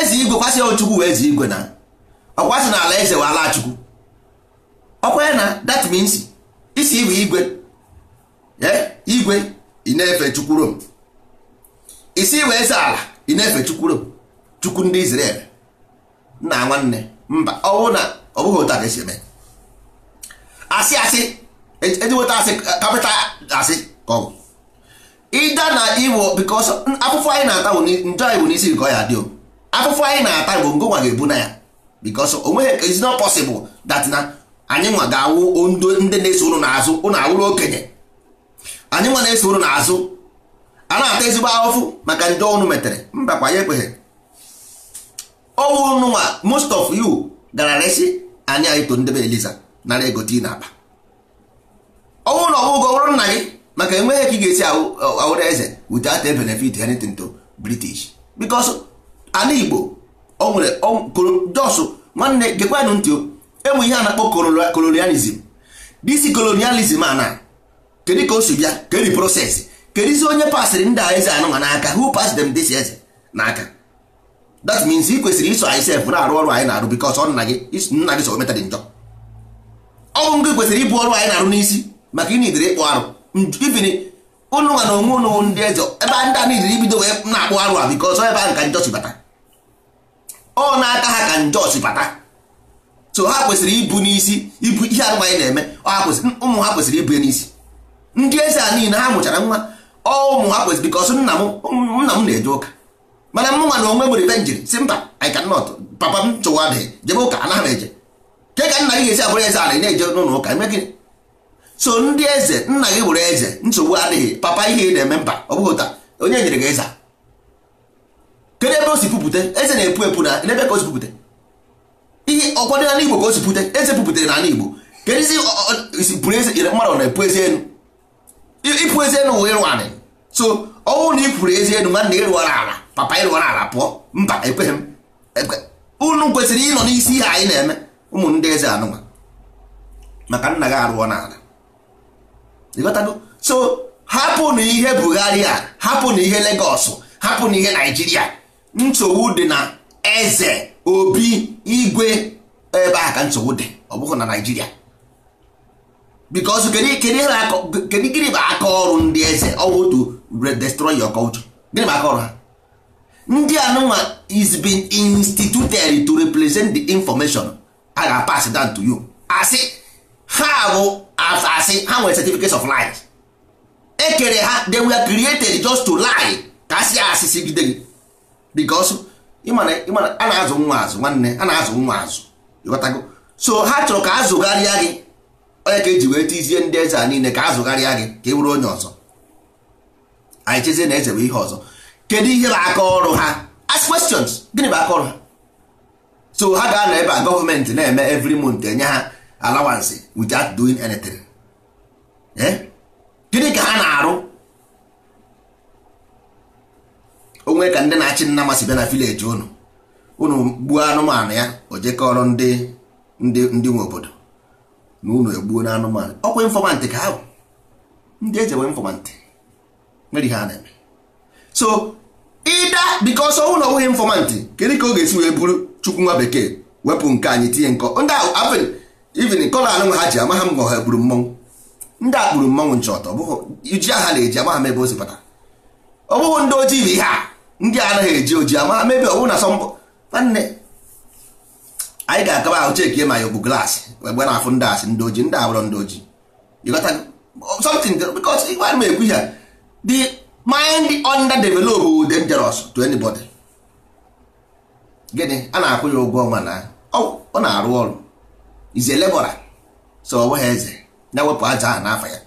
eze igwe kwasị ochukwu wee eze igwe na ọkwasị na ala eze wee ala chukwu okwe na that means isi iwe igwe eh, igwe ị na-efe chukwu rom isi iwe eze ala ị na-efe chukwu rom chukwu ndị Israel nna nwanne mba ọ bụrụ na ọ bụghị otu a ga-esi eme asị asị eji e nweta asị kapịta asị ka ọ bụ ịda na iwo because afụfụ anyị na-ata njọ anyị iwu n'isi nke ọ ya dị o afụfụ anyị na-ata bụ nwa ga-ebu na ya because o nweghị is not possible na anyị nwa ga-awụ ndị na-eso ụrụ n'azụ ụnụ awụrụ okenye anyị nwa na-eso ụrụ n'azụ a na-ata ezigbo ahụfụ maka ndị ọnụ metere mba kwa ya ekweghị ọwụ nụnwa most of you gara resi anyị anyị to ndebe eliza nara ego ị na aba ọnwụ na ọgwụgwọ ọrụ nna gị maka enweghị ka ị ga-esi awụrụ eze without a benefit anything to british because ala igbo o nwere jos nwanne gekwanụ ntị enwe ihe a na-akpọ colonialism disi colonialism a na kedu ka o si bịa kedi proses kedizi onye pasịrị ndị a eze anụnwa n'aka who pass them this eze n'aka that means ị kwesịrị iso isef sef na-arụ ọrụ anyị na-arụ bikos ọ nna gị nna gị so meta dị njọ ọ bụ gị kwesịrị ịbụ ọrụ anyị na-arụ n'isi maka ị idere ịkpụ arụ ibiri ụnụ nwa na onwe ụnụ ndị eze ebe ndị a niile ibido wee na-akpụ arụ a bikos ebe ahụ ka njọ si bata ọ na n'aka ha ka njọ si bata so ha kwesịrị ibu n'isi ibu ihe arụ anyị na-eme ụmụ ha kwesịrị ibu n'isi ndị eze a niile ha mụchara nwa ọ ụmụ ha kwesịrị bikos nna m na-eje ụka mana mụ na onwe nwere ibe njiri si mba anyị i cannot papa m chụwa adịghị jebe ụka anaghị eje ke ka nna gị ga-esi abụrụ eze ala na-eje n'ụlọ ụka eme gịnị so ndị eze nna gị bụrụ eze nsogbu adịghị papa ihe ị na-eme mba ọ bụghị ụta onye nyere gị eze kedu ebe o si pụpụte eze na-epu epu na ebe ka o si pụpụte ihe ọkwado n'ala igbo ka o si pụte eze na n'ala igbo kedizi isi pụrụ eze nyere mmadụ na-epu eze enu ịpụ eze elu wụ ịrụ anị so ọ na ị eze elu nwanne ịrụwara ala papa ịrụọ ala pụọ mba ekweghị m unu kwesịrị ịnọ n'isi ihe anyị na-eme ụmụ eze anụnwa maka nna gị arụọ n'ala so hapụ na ihe Buhari a hapụ na ihe Lagos hapụ na ihe Naịjirịa nsogbu dị na eze obi igwe ebe ahụ ka nsogbu dị ọ bụghị na Naịjirịa because kedu gịnị bụ aka ọrụ ndị eze ọ bụ to destroy your culture gịnị bụ aka ọrụ ha ndị anụnwa is been instituted to represent the information a ga-pass down to you asị ha bụ asị ha nwere certificate of lies ekere ha they were created just to lie ka asị asịsị gide gị because ịmana ịmana a na-azụ nwa azụ nwanne a na-azụ nwa azụ ịghọtago so ha chọrọ ka azụgharịa gị onye ka eji wee tizie ndị eze a niile ka azụgharịa gị ka ị e bụrụ onye ọzọ anyị chezie na eze bụ ihe ọzọ kedu ihe bụ aka ọrụ ha ask questions gịnị bụ aka ọrụ ha so ha ga-anọ ebe a gọọmenti na-eme every month enye ha allowance without doing anything eh? gịnị ka ha na-arụ onwe ka ndị na-achị nna masị bịa na vileji unu unu gbuo anụmanụ ya o jekọrọ ndị ndị ndị nwe obodo na unu egbuo na anụmanụ ọkwa infọmantị ka ahụ ndị eji enwe infọmantị nwere ihe a na-eme so ịda because ọnwụ na onweghị informant kedu ka ọ ga-esi wee bụrụ chukwu nwa bekee wepụ nke anyị tinye nkọ ndị ahụ even kọla anụ ha ji ama ha mgbe ha gburu mmọnwụ ndị a kpuru mmọnwụ nche ọtọ ji aha na-eji ama ha mebe o si ndị ojii bụ ihe a ndị a anaghị eji oji ama ha mebe ọ bụrụ na sọmbọ nwanne anyị ga-akaba ahụ chekie ma ya ogbu glaasị egbe na-afụ ndị asị ndị ojii ndị abụrọ ndị ojii something because ịgwa ekwu ya dị mind underdeveloped bụ dangerous to anybody gịnị a na-akwụ ya ụgwọ ọnwa na ọ na-arụ ọrụ ize lebora so ọ nweghị eze na-ewepụ aja ahụ n'afọ ya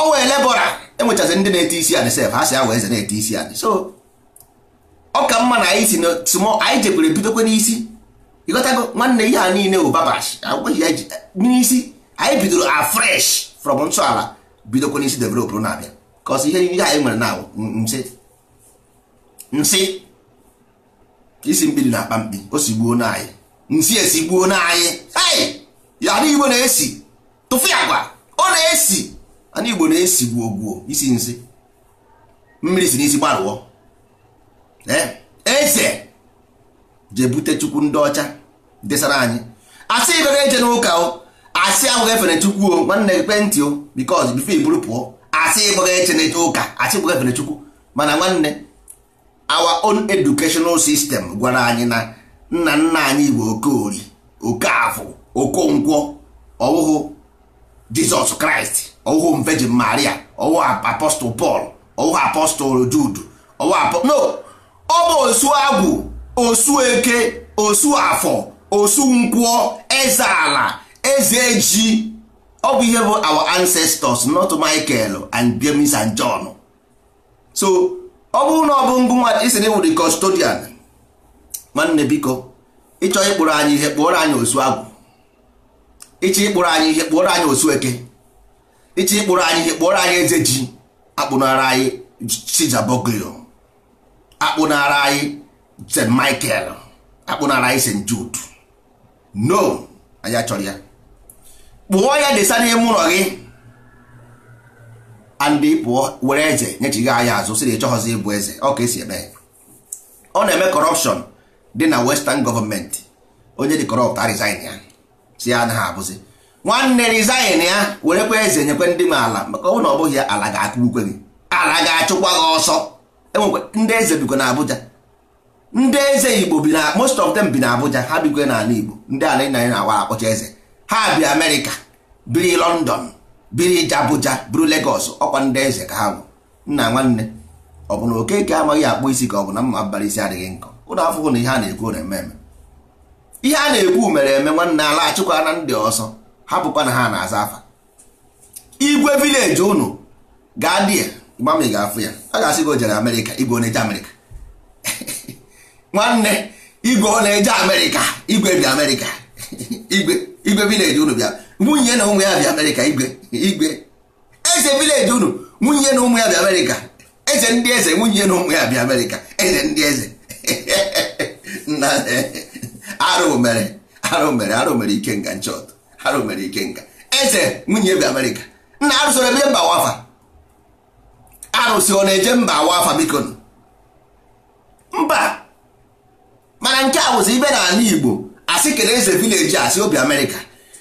ọ wee lebora enwechazi ndị na-ete isi anị sef ha si awa eze na-ete isi anị so ọ ka mma na anyị si na small anyị jebere bidokwe n'isi ịghọtago nwanne ihe a niile bụ babash agwaghị n'isi anyị bidoro afresh from nsọala bidokwe n'isi developụrụ na-abịa kọs ihe ihe anyị nwere na nsị nsị isi mkpiri na-akpa mkpi o sigbuo na anyị nsị esigbuo na anyị ei yara igbo na-esi tụfụ agwa ọ na-esi ana igbo na esi gbuo gbuo isi nsị mmiri si n'isi gbarụọ eh? eze jee bute chukwu ndị ọcha desara anyị asị ibe na-eje n'ụka o asị ahụghị efere chukwu o nwanne gị kwentị o bikọz bifo iburu pụọ asị ịgbụghị echeneche ụka asị ịgbụghị efenechukwu mana nwanne our own educational system gwara anyị na nna nna anyị bụ okori okafọ okonkwo ọwụhụ jizọs kraịst ọwụhụ virgin maria ọwụhụ apostol paul ọwụhụ apostol jude no ọ bụ osu agwụ osu eke osu afọ osu eze ala eze ji ọ bụ ihe bụ our ancestors not Michael and James and John so ọ bụrụ na ọ bụ ngụ nwa isi na iwụrụ custodian nwanne biko ịchọ ịkpụrụ anyị ihe kpụọrọ anyị osu agwụ ịchọ ịkpụrụ anyị ihe kpụọrọ anyị osu eke ịchọ ịkpụrụ anyị ihe kpụọrọ anyị eze ji akpụnara anyị chijaboglio akpụnara anyị st michael akpụnara anyị st jude no anyị achọrọ ya kpụọ ya desa n'ime ụlọ gị andị pụọ were eze nyechighị anya azụ sị na ịchọghọzi ịbụ eze ọ ka esi eme ọ na-eme kọrọpshọn dị na western gọọmenti onye dị kọrọpt resign ya si ya anaghị abụzi nwanne resign ya werekwa eze nyekwe ndị m ala maka ọ na ọ bụghị ya ala ga-akụgbukwe gị ala ga-achụkwa gị ọsọ enwekwa ndị eze bikwa na Abuja ndị eze Igbo bi na most of them bi na Abuja ha bikwe n'ala Igbo ndị ala nna anyị na-awa akpọcha eze ha bi amerịka biri london biri abuja buru legos ọkwa ndị eze ka ha bụ nna nwanne ọ bụ na okeke amaghị akpụ isi ka ọ bụ na mma abalị isi adịghị nkọ ụlọ afụhụ na ihe a na-ekwu na ememe ihe a na-ekwu mere eme nwanne ala achịkwa na ndị ọzọ hapụkwa na ha na-aza afa igwe vileji unu gaa di ya gbama ị ga-afụ ya a ga-asị gị o jere amerịka igwe ọ na-eje amerịka [LAUGHS] nwanne igwe ọ na-eje amerịka igwe bi amerịka [LAUGHS] igwe igwe vileji unu bịa nwunye na ụmụ ya bịa amerịka igwe igwe eze vileji unu nwunye na ụmụ ya bịa amerịka eze ndị eze nwunye na ụmụ ya bịa amerịka eze ndị eze [LAUGHS] arụ mere arụ mere arụ mere ike nga nchọt arụ mere ike nga eze nwunye bịa amerịka nna arụsịrị ebe mba wafa arụsị ọ na-eje mba wafa biko mba mana nke a bụzi ibe n'ala igbo asị kedụ eze vileji asị obi amerịka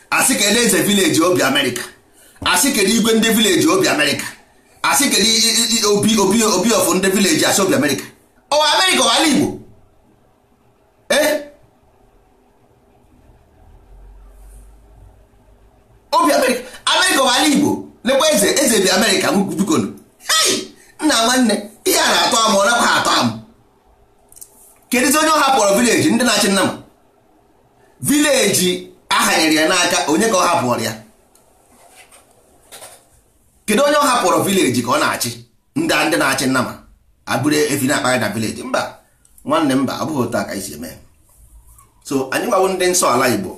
asị kedụ eze vileji obi amerịka asị kedụ igwe ndị vileji obi amerịka asị kedụ obi obi obi ọfụ ndị vileji asị obi amerịka ọ oh, amerịka ọ ala igbo eh? obi amerịka amerịka ọ ala igbo lekwa eze eze bi amerịka bikonu hei nna nwanne ihe a na-atọ amụ ọ nakwa atọ amụ kedụzi onye ọ hapụrụ vileji ndị na-achị nna m eji ahanyere ya n'aka onye ka ọ hapụrụ ya kedu onye ọ hapụrụ vileji ka ọ na-achị ndị ndị na-achị nnama abụrụ efi na-akpagha na vileji mba nwanne mba ọ bụghị otu a ka isi eme so anyị gbawo ndị nsọ ala igbo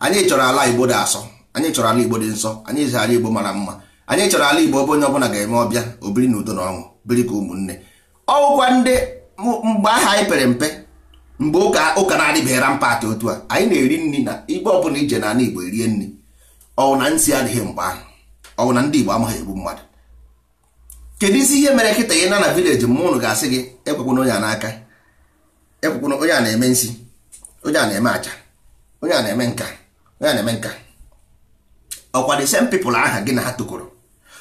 anyị chọrọ ala igbo dị asọ anyị chọrọ ala igbo dị nsọ anyị chọrọ ala igbo mara mma anyị chọrọ ala igbo ebe onye ọbụla ga-eme ọbịa obiri na udo na ọṅụ biri ka ụmụnne ọwụkwa ndị mgbe aha anyị pere mpe mgbe ụka ụka na-adịbeghara mpaghara otu a anyị na-eri nri na igbe ọbụla ije na ala Igbo erie nri ọwụ na nsi adịghị mgbe ahụ ọwụ na ndị Igbo amaghị egbu mmadụ kedu isi ihe mere kịta ya na na vileji mma ụnụ ga-asị gị ekwekwana onye a n'aka ekwekwana onye a na-eme nsi onye a na-eme aja onye a na-eme nka onye a na-eme nka ọkwa the same people aha gị na ha tokoro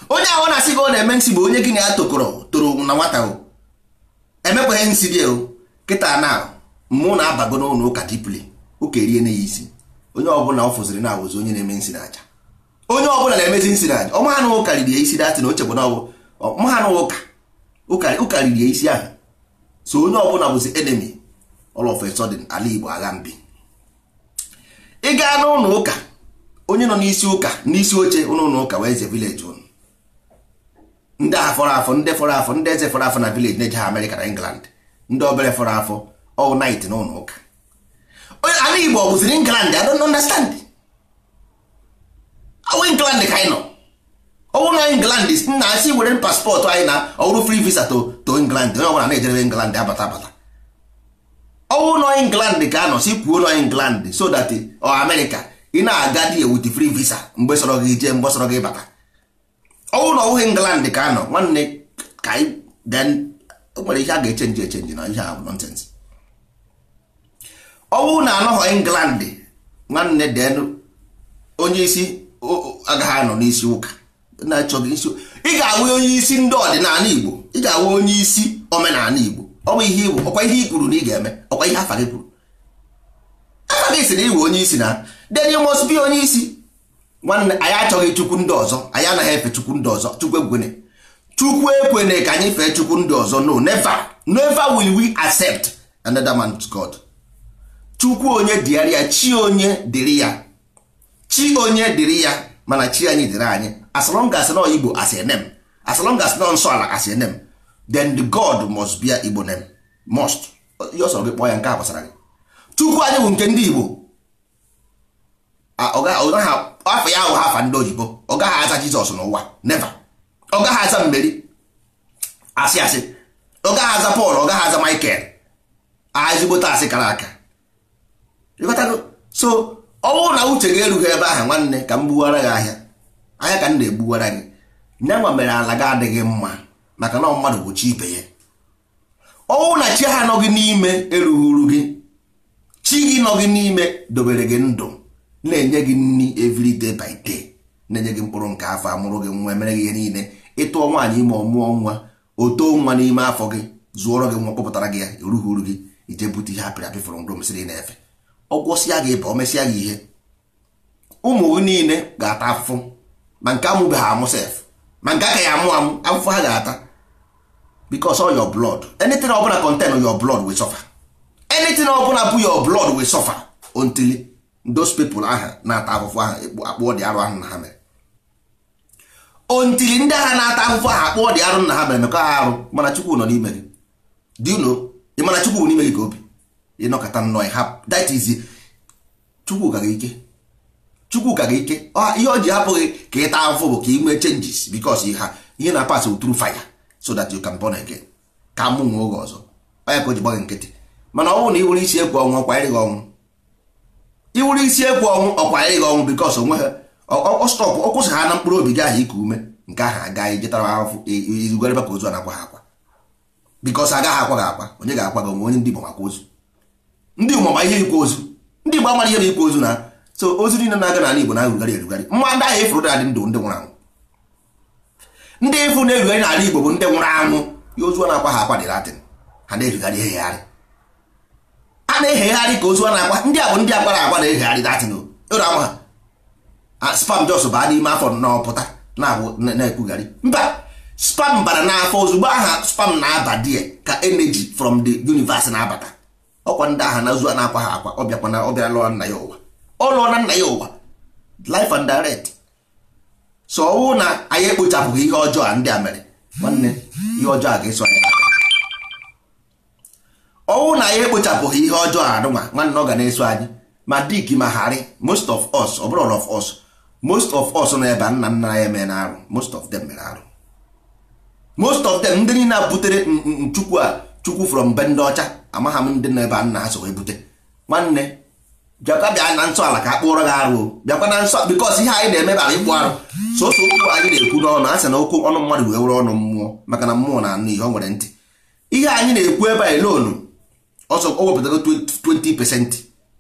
onye ahụ na-asị gị ọ na-eme nsi bụ onye gị na ya tokoro toro na nwata o emekwaghị nsị bịa o kịta na ahụ mụ na-abago n'ụlọ ụka dipli ụka erie na ya isi onye ọbụla ọ fụziri na awụzi onye na-eme nsi n'aja onye ọbụla na-emezi nsi n'aja ọ maha ụka riri ya isi datị na ochegbu na maha na ụka ụka riri ya isi ahụ so onye ọbụla bụzi enemi all of a ala Igbo agha mbi ị gaa n'ụlọ ụka onye nọ n'isi ụka n'isi oche ụlọ ụka wee ze vileji ụnụ ndị afọrọ afọ ndị fọrọ afọ ndị eze fọrọ afọ na vileji na-eje ha Amerịka na England ndị obere fọrọ afọ all oh, night n'ụlọ ụka ala igbo ọ bụziri england i don't understand awụ oh, england ka anyị nọ ọwụ na england nna asị were paspọtụ anyị na ọwụrụ oh, free visa to to england onye ọbụla na-ejere england abata abata ọwụ nọ england ka anọ si kwuo nọ england so that ọ America ị na-aga di with free visa mgbe sọrọ gị jee mgbe sọrọ gị bata ọwụ na ọwụghị england ka anọ nwanne ka anyị nwere ihe a ga-echenji echenji na ihe a bụ ọ bụrụ na anọghọ england nwanne den onye isi agaghị anọ n'isi ụka na-achọghị isi ị ga-awụ onye isi ndị ọdịnala igbo ị ga-awụ onye isi omenala igbo ọ bụ ihe igbo ọkwa ihe i kwuru na ị ga-eme ọkwa ihe afa gị kwuru afa gị si na iwe onye isi na then you must be onye isi nwanne anyị achọghị chukwu ndị ọzọ anyị anaghị efe chukwu ndị ọzọ chukwu ekwene chukwu ekwene ka anyị fee chukwu ndị ọzọ no never never will we accept another man's god chukwu onye dịara ya chi onye dịrị ya chi onye dịrị ya mana chi anyị dịrị anyị as long as nọ igbo as a name as long as nọ nsọ ala as a then the god must be igbo name must ọsọ gị kpọọ ya nke a gbasara gị chukwu anyị bụ nke ndị igbo afọ ya ahụ ha afa ndị oyibo ọ gaghị aza jizọs n'ụwa never ọ gaghị aza mmeri asị asị ọ gaghị aza pọl ọ gaghị aza michael ezigbote asị kara aka ịghọtago so ọ bụrụ na uche gị erughị ebe ahụ nwanne ka m gbuwara gị ahịa ahịa ka m na-egbuwara gị nwa mere ala gị adịghị mma maka na mmadụ bụ chi ibe ya ọnwụ na chi ha nọ gị n'ime erughuru gị chi gị nọ gị n'ime dobere gị ndụ na-enye gị nri every de by day na-enye gị mkpụrụ nke afọ amụrụ gị nwa emere gị ihe niile ịtụọ nwaanyị ime ọmụọ nwa o too nwa n'ime afọ gị zụọrọ gị nwa kpọpụtara gị ya erughuru gị ije bute ihe apịrị apị fụrụ ndo m na-efe ọ gwọsịa gị ịba o mesịa gị ihe ụmụ gị niile ga-ata afụfụ ma nke ha amụ sef ma nke aka ya amụ amụ afụfụ ha ga-ata because all your blood anything ọbụla contain your blood will suffer ọbụla bụ your blọd sọfa aha na-ata afụfụ ahụ akpụọ dị arụ ahụ na ha mere ndị agha na-ata afụfụ ahụ akpụọ dị arụ na ha mere mekọ arụ mana Chukwu nọ n'ime gị ịnọkọta nnọọ ya hapụ that is chukwu gara ike chukwu gara ike ihe ọ ji hapụghị ka ị taa afọ bụ ka ị nwee changes because ihe na-apasị through fire so that you can born again ka mụ nwe oge ọzọ onye ka o ji gba nkịtị mana ọ bụrụ na iwere isi egwu ọnwụ ọkwanyere gị ọnwụ iwere isi egwu ọnwụ ọkwanyere gị ọnwụ because onwe ha ọstọpụ ọ kwụsị ha na mkpụrụ obi gị ahụ iku ume nke ahụ aga ijetara ahụfụ irugarebe ka ozu a na-akwa ha akwa because agaghị akwa gị akwa onye ga-akwa gị onwe onye ndị bụ maka ozu ndị ụmụ ma ihe ikwu ozu ndị Igbo amara ihe na ikwu ozu na so ozu niile na-aga n'ala Igbo na-erugharị erugharị mma ndị ahụ ịfụrụ na-adị ndụ ndị nwụrụ anwụ ndị ịfụ na-erugharị n'ala Igbo bụ ndị nwụrụ anwụ ya ozu a na-akwa ha akwa dị latịn ha na-erugharị ehegharị a na-ehegharị ka ozu a na-akwa ndị a bụ ndị agbara agwa na-ehegharị Latin oro e ama ha spam jos baa n'ime afọ n'ọpụta na-ekwugharị mba spam bara n'afọ ozugbo aha spam na-aba die ka energy from the universe na-abata ọkwa ndị aha na ozu a na-akwa ha akwa ọ bịakwa na ọ bịa lụọ nna ya ụwa ọ lụọ na nna ya ụwa life and direct so ọwụ na anyị ekpochapụghị ihe ọjọọ a ndị a mere nwanne ihe ọjọọ a ga-eso anyị ọwụ na anyị ekpochapụghị ihe ọjọọ a nụnwa nwanne ọ ga na-eso anyị ma dik ma harị most of us ọ bụrụ all of us most of us nọ ebe nna nna ya eme na arụ most of them mere arụ most of them ndị niile a butere nchukwu a chukwu from mbe ndị ọcha amagha m ndị nọ ebe a nna ha so ebute nwanne bịakwa bịa na nsọ ala ka a kpụọrọ gị arụ bịakwa na nsọ bikọs ihe anyị na-eme bara ịkpụ arụ soso okwu anyị na-ekwu n'ọnụ a sị na okwu ọnụ mmadụ wee were ọnụ mmụọ maka na mmụọ na anụ ihe ọ nwere ntị ihe anyị na-ekwu ebe anyị lonu ọsọ o wepụtago 20 percent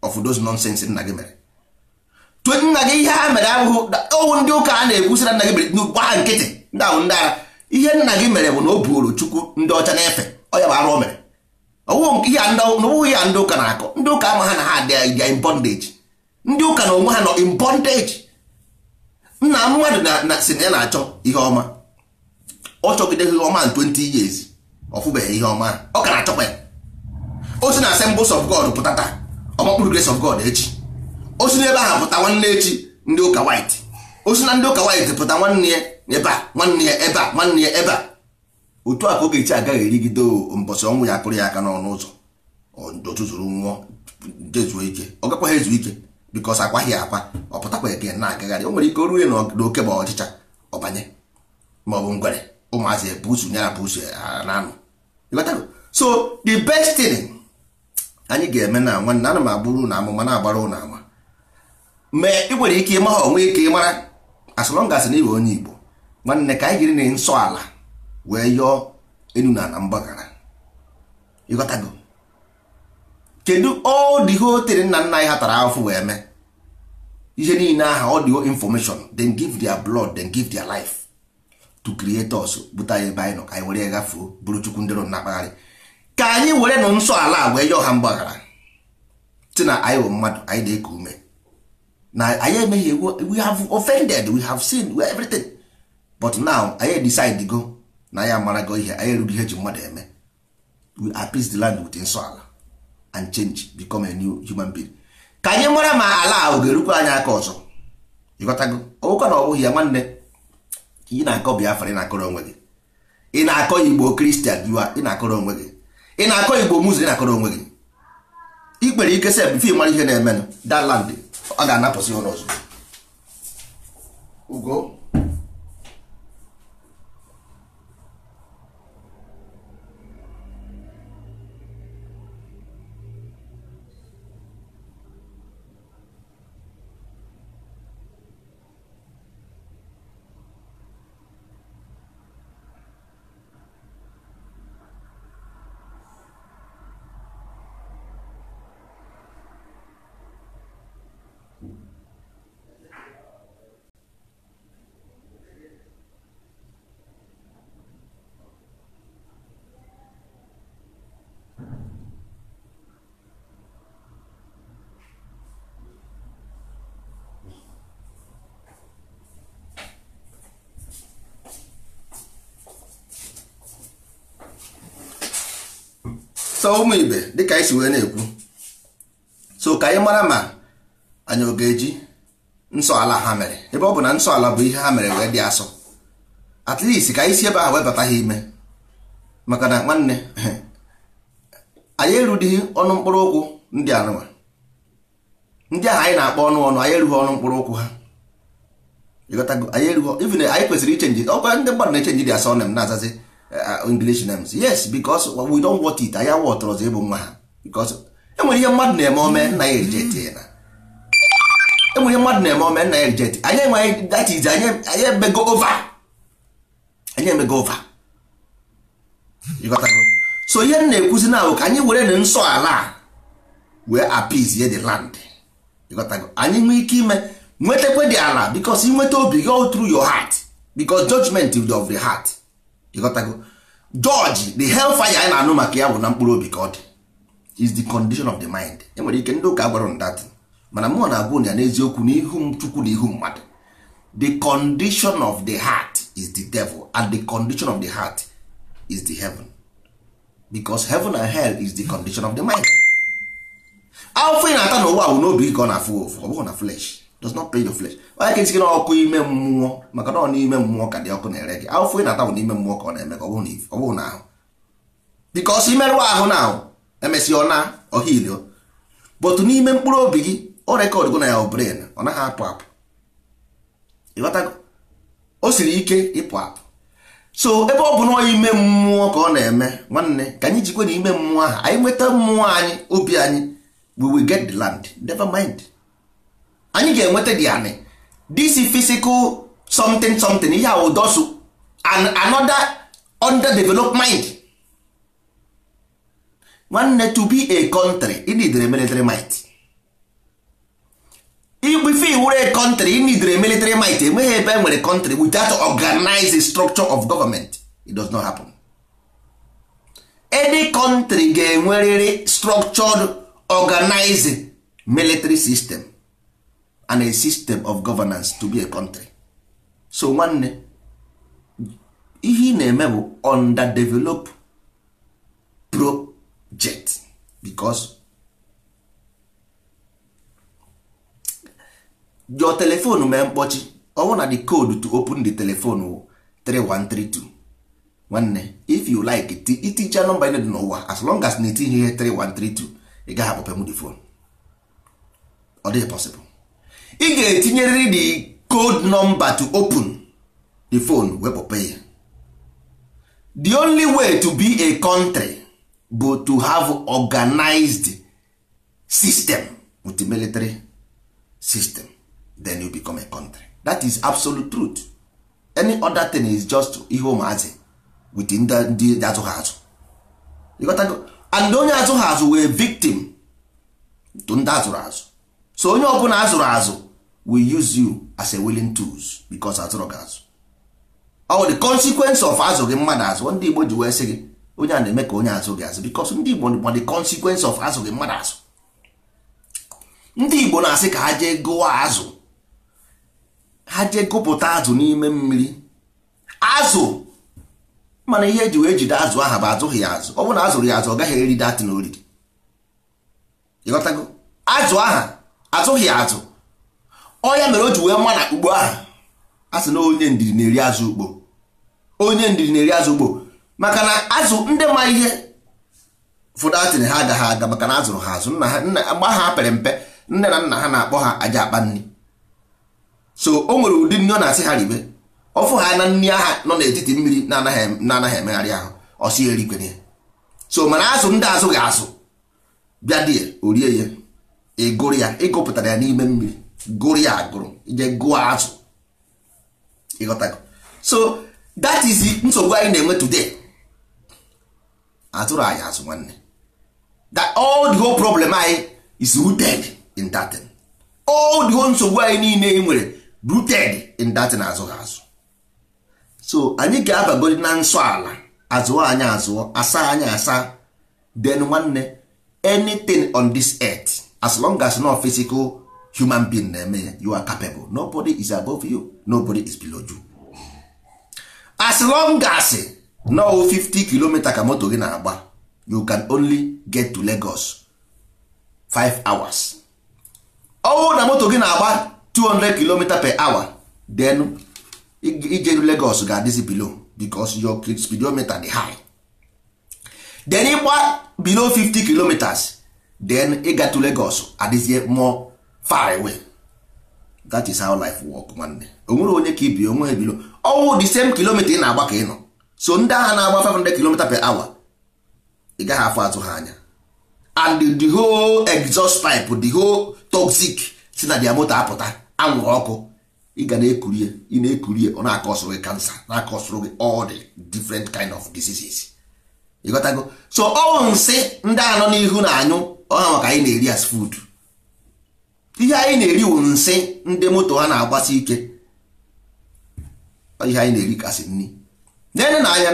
of those nonsense nna gị mere nna gị ihe ha mere abụghị owu ndị ụka a na-ekwu sị na nna gị mere gbaa nkịtị ndị ahụ ndị ara ihe nna gị mere bụ na o buoro chukwu ndị ọcha na-efe ọya bụ arụ mere mere ọwụghị ihe a ndị ụka na-akọ ndị ụka ama ha na ha dị in bondage ndị ụka na onwe ha nọ impondage bondage nna mmadụ na si na ya na-achọ ihe ọma ọ chọgidere ihe ọma 20 years ọfụbeghị ihe ọma ọ ka na-achọkwa ya o si na assemblies of God pụta taa ọmakpụrụ grace of God echi o si n'ebe ahụ pụta nwanne echi ndị ụka white o si na ndị ụka white pụta nwanne ya ebe a nwanne ya ebe a nwanne ya ebe a otu a ka Ogechi agaghị erigide mbọsị ọnwụ ya akụrụ ya aka n'ọnụ ụzọ otu zụrụ nwụọ dezuo ike ọ gakwaghị ezu ike bikos akwaghị akwa ọ pụtakwa eke na-agagharị o nwere ike o ruo n'oke ma ọchịcha ọbanye ma ọ bụ ngwere ụmụazị ebusu ya na busu na-anụ so the best thing anyị ga-eme na nwanne ana m agbụrụ na amụma na-agbara ụlọ ama ma ị nwere ike ịma ha onwe ike ịmara as long as onye Igbo nwanne ka anyị jiri na nsọ ala wee yọọ enu na ana mgbaghara ịghọtago kedu ọ dị hotel nna nna anyị hatara afọ wee mee ihe niile aha ọ dị information then give their blood then give their life to create us bute anyị ebe anyị nọ ka anyị were gafuo bụrụ chukwu ndị nọ na-akpagharị ka anyị were nọ nsọ ala wee yọọ ha mgbaghara si na anyị bụ mmadụ anyị na-eku ume na anyị emeghị we have offended we have seen everything but now anyị decide go na ya amarago ihe anyị erughị ihe ji mmadụ eme we apis the land with ala and change become a new human being ka anyị mara ma ala ahụ ga-erukwa anyị aka ọzọ ịghọtago ụka na ọ bụghị ya nwanne ị na-akọ Biafra ị na-akọrọ onwe gị ị na-akọ Igbo Kristian ị na-akọrọ onwe gị ị na-akọ Igbo Muslim ị na-akọrọ onwe gị ị kpere ike sef bifo mara ihe na-emenụ that land ọ ga-anapụsị ụlọ ọzọ ugo so ụmụ ibe dịka anyị si wee na-ekwu so ka anyị mara ma anyị ọ ga-eji nsọ ala ha mere ebe ọ bụ na nsọ ala bụ ihe ha mere wee dị asọ at ka anyị si ebe ahụ webata ha ime maka na nwanne [LAUGHS] anyị erudighị ọnụ mkpụrụ ụkwụ ndị anụwa ndị ahụ anyị na-akpọ ọnụ ọnụ anyị erughị ọnụ mkpụrụ ụkwụ ha anyị kwesịrị ichenji ọkwa ndị mmadụ na-echenji dị asọ na m na-azazi Uh, uh, English names yes because we don't want it anya wọtọrọzi ịbụ nwa ha eh, because enwere ihe mmadụ na-eme ome nna ya ejeti na enwere ihe mmadụ na-eme ome nna ya ejeti anyị enwe that is anyị emego over anyị emego over ịghọtago so ihe m na-ekwuzi na ka anyị were na nsọ ala wee appease the land ịghọtago anyị nwee ike ime nwetakwe the ala because inweta obi gị all through your heart because judgment of the heart ịghọtago George the hellfire anyị na-anụ maka ya bụ na mkpụrụ obi ka is the condition of the mind e nwere ike ndị ụka gwara that mana mụọ na-agwụ ya n'eziokwu n'ihu m chukwu na ihu mmadụ the condition of the heart is the devil and the condition of the heart is the heaven because heaven and hell is the condition of the mind afọ ị na-ata n'ụwa bụ n'obi ka ọ na-afụ ofu ọ bụghị na flesh does not play your flesh onye ka isi gị n'ọkụ ime mmụọ maka na ọ n'ime mmụọ ka dị ọkụ na-ere gị afụfụ ị na-ata bụ n'ime mmụọ ka ọ na-eme ka ọ bụrụ na ahụ bikos imerụ ahụ na ahụ emesịa ọ na ọhilio bụtụ n'ime mkpụrụ obi gị ọ rekọd gụ na ya ọ brain ọ naghị apụ apụ ịghọtago o siri ike ịpụ apụ so ebe ọ bụ na ọya ime mmụọ ka ọ na-eme nwanne ka anyị jikwe na ime mmụọ ahụ anyị nweta mmụọ anyị obi anyị we get the land never mind. anyị ga-enweta dị anị this physical something something ihe and another underdeveloped mind nwanne to be a country inidere military might igbife iwere a country inidere military might enweghị ebe e nwere country without organized structure of government it does not happen any country ga-enwerịrị structured organized military system and a system of governance to be a country so nwanne ihe ị na-eme bụ underdevelop project because your telephone mee mkpọchi ọwụ na the code to open the telephone wụ 3132 nwanne if you like iticha nọmba ị dị n'ụwa as long as na etinye ihe 3132 ị gaghị akpọpe m the phone ọ dịghị possible ị ga-etinyerịrị the code number to open the phone wepụ pay the only way to be a country bụ to have organized system with military system then you become a country that is absolute truth any other thing is just ihe ụmụazị with ndị azụghị azụ and onye azụghị azụ wee victim to ndị azụrụ azụ so onye ọbụla azụrụ azụ we use you as a willing tools because atụrụ gị azụ ọ the consequence of azụ gị mmadụ azụ ndị Igbo ji wee sị gị onye a na-eme ka onye azụ gị azụ because ndị Igbo ma the consequence of azụ gị mmadụ azụ ndị Igbo na-asị ka ha jee gụwa azụ ha jee gụpụta azụ n'ime mmiri azụ mana ihe eji wee jide azụ aha bụ azụghị ya azụ ọ bụrụ na azụrụ ya azụ ọ gaghị eri datin oriri ịghọtago azụ aha azụghị ya azụ ọnya mere o ji wee ma ugbo ahụ a sị na onye ndidi na-eri azụ ugbo onye ndidi na-eri azụ ugbo maka na azụ ndị ma ihe ụfọdụ atịrị ha agaghị aga maka na azụrụ ha azụ agba ha pere mpe nne na nna ha na-akpọ ha aja akpa nri so o nwere ụdị nri ọ na-asị ha ribe ọfụ ha na nri aha nọ n'etiti mmiri na-anaghị emegharị ahụ ọsị erikwenye so mana azụ ndị azụ ga-azụ bịa die orie ya ịgụrụ ya ịgụpụtara e e ya n'ime mmiri gụrụ ya agụrụ ije gụọ azụ ịghọtago so that is nsogbu anyị na-enwe today atụrụ anyị azụ nwanne that all the whole problem anyị is rooted in that thing all the whole nsogbu anyị niile ị e nwere rooted in that thing azụ azụ so anyị ga-abagodi na nsọ ala azụọ anyị azụọ asa anyị asa then nwanne anything on this earth as long as no physical human being na-eme ya you are capable nobody is above you nobody is below you as long as no 50 kilomita ka moto gị na-agba you can only get to Lagos 5 hours ọwụ na moto gị na-agba 200 km per hour then ijeru Lagos ga-adịzi below because your speedometer dey high then ịgba below 50 kilometers then ịga to Lagos adịzie more far away that is how life work nwanne onwere onye ka ibi onwe ebilo ọwụ the same kilomita ị na-agba ka ị nọ so ndị agha na-agba 500 km per hour ị gaghị afọ atụ ha anya and the whole exhaust pipe the whole toxic si na dia moto apụta anwụrụ ọkụ ị ga na-ekurie ị na-ekurie ọ na-akọsụrụ gị kansa na-akọsụrụ gị all the different kind of diseases ịghọtago so ọwụ nsị ndị anọ n'ihu na anyụ ọha maka anyị na-eri as food ihe anyị na-eri wụ nsị ndị moto ha na-agbasi ike ihe anyị na-eri kasị nri na na anya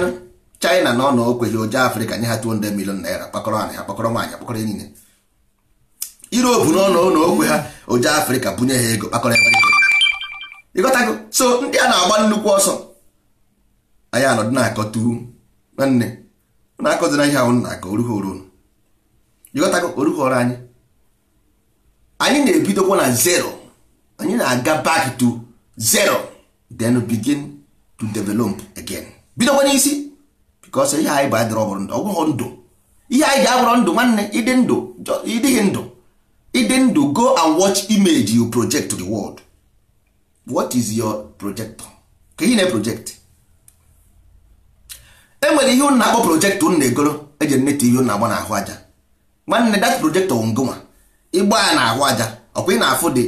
China na ọ na okweghị ụja Afrịka nye ha 200 million naira kpakọrọ anyị kpakọrọ nwaanyị akpakọrọ niile Europe na ọnụ na okwe ha ụja Afrịka bunye ha ego kpakọrọ ịgọta ịghọtago so ndị a na-agba nnukwu ọsọ anyị anọdụ na-akọtu nwanne na-akọzina ihe ahụ na-akọ orughoro ịghọtago orughoro anyị anyị na-ebidokwa na zero anyị na-aga back to zero then begin to develop again bidokwa n'isi because ihe anyị bụ adịrọ ọbụrụ ndụ ọgwụghọ ndụ ihe anyị ji abụrọ ndụ nwanne ịdị ndụ ịdịghị ndụ ịdị ndụ go and watch image you project to the world what is your projector ka ihe na-project e nwere ihe ụnụ na-akpọ projektọ ụnụ na-egoro eji nete ihe ụnụ agba n'ahụ aja nwanne that projektọ wụ ngụnwa ịgba ya na-ahụ aja ọkwa ị na-afụ dị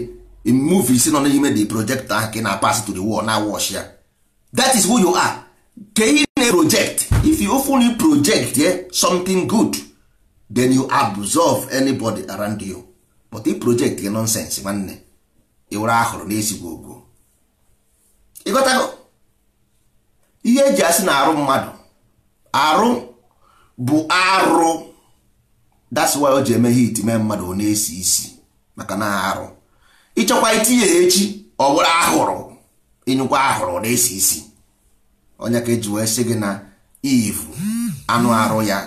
movies nọ n'ime the project nke ka ị na-apas to the wall na wash ya that is who you are Ke ị na-project if you fully project yeah, something good then you absorb anybody around you but i project gị nonsense nwanne ịwere ahụrụ n'ezigbo ogo ịghọtago ihe eji asị na arụ mmadụ arụ bụ arụ that's why o ji eme hit mee mmadụ ọ na-esi isi maka na arụ ịchọkwa itinye ya echi ọ bụrụ ahụrụ ịnyụkwa ahụrụ na-esi isi onye ka eji wee sị gị na ivu anụ arụ ya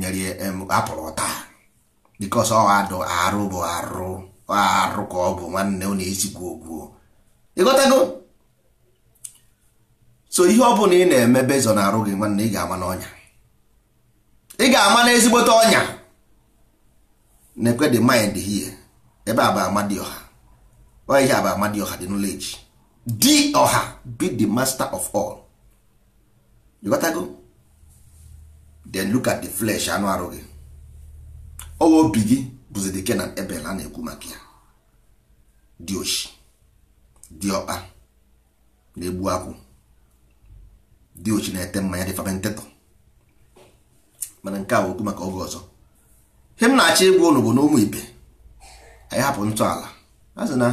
nyere apụrụ taa bikos ọ adụ arụ bụ arụ arụ ka ọ bụ nwanne ọ na-esi gwuo gwuo so ihe ọ bụla ị na-eme bezọ na arụ gị nwanne ị ga-ama n'ọnya ị ga-ama na ezigbote ọnya na-ekwe the mind here ebe a bụ amadioha onye ihe a bụ dị the Echi. di ọha be the master of all you gotta go then look at the flesh anụ arụ gị ọwa obi gị bụzi the a na-ekwu maka ya dị oshi dị ọkpa na-egbu akwụ di ochi na-ete mmanya dị fermentetọ mana nke a okwu maka oge ọzọ he m na-achọ ịgwa ụnụ bụ n'ụmụ ibe anyị hapụ ntọala a sị na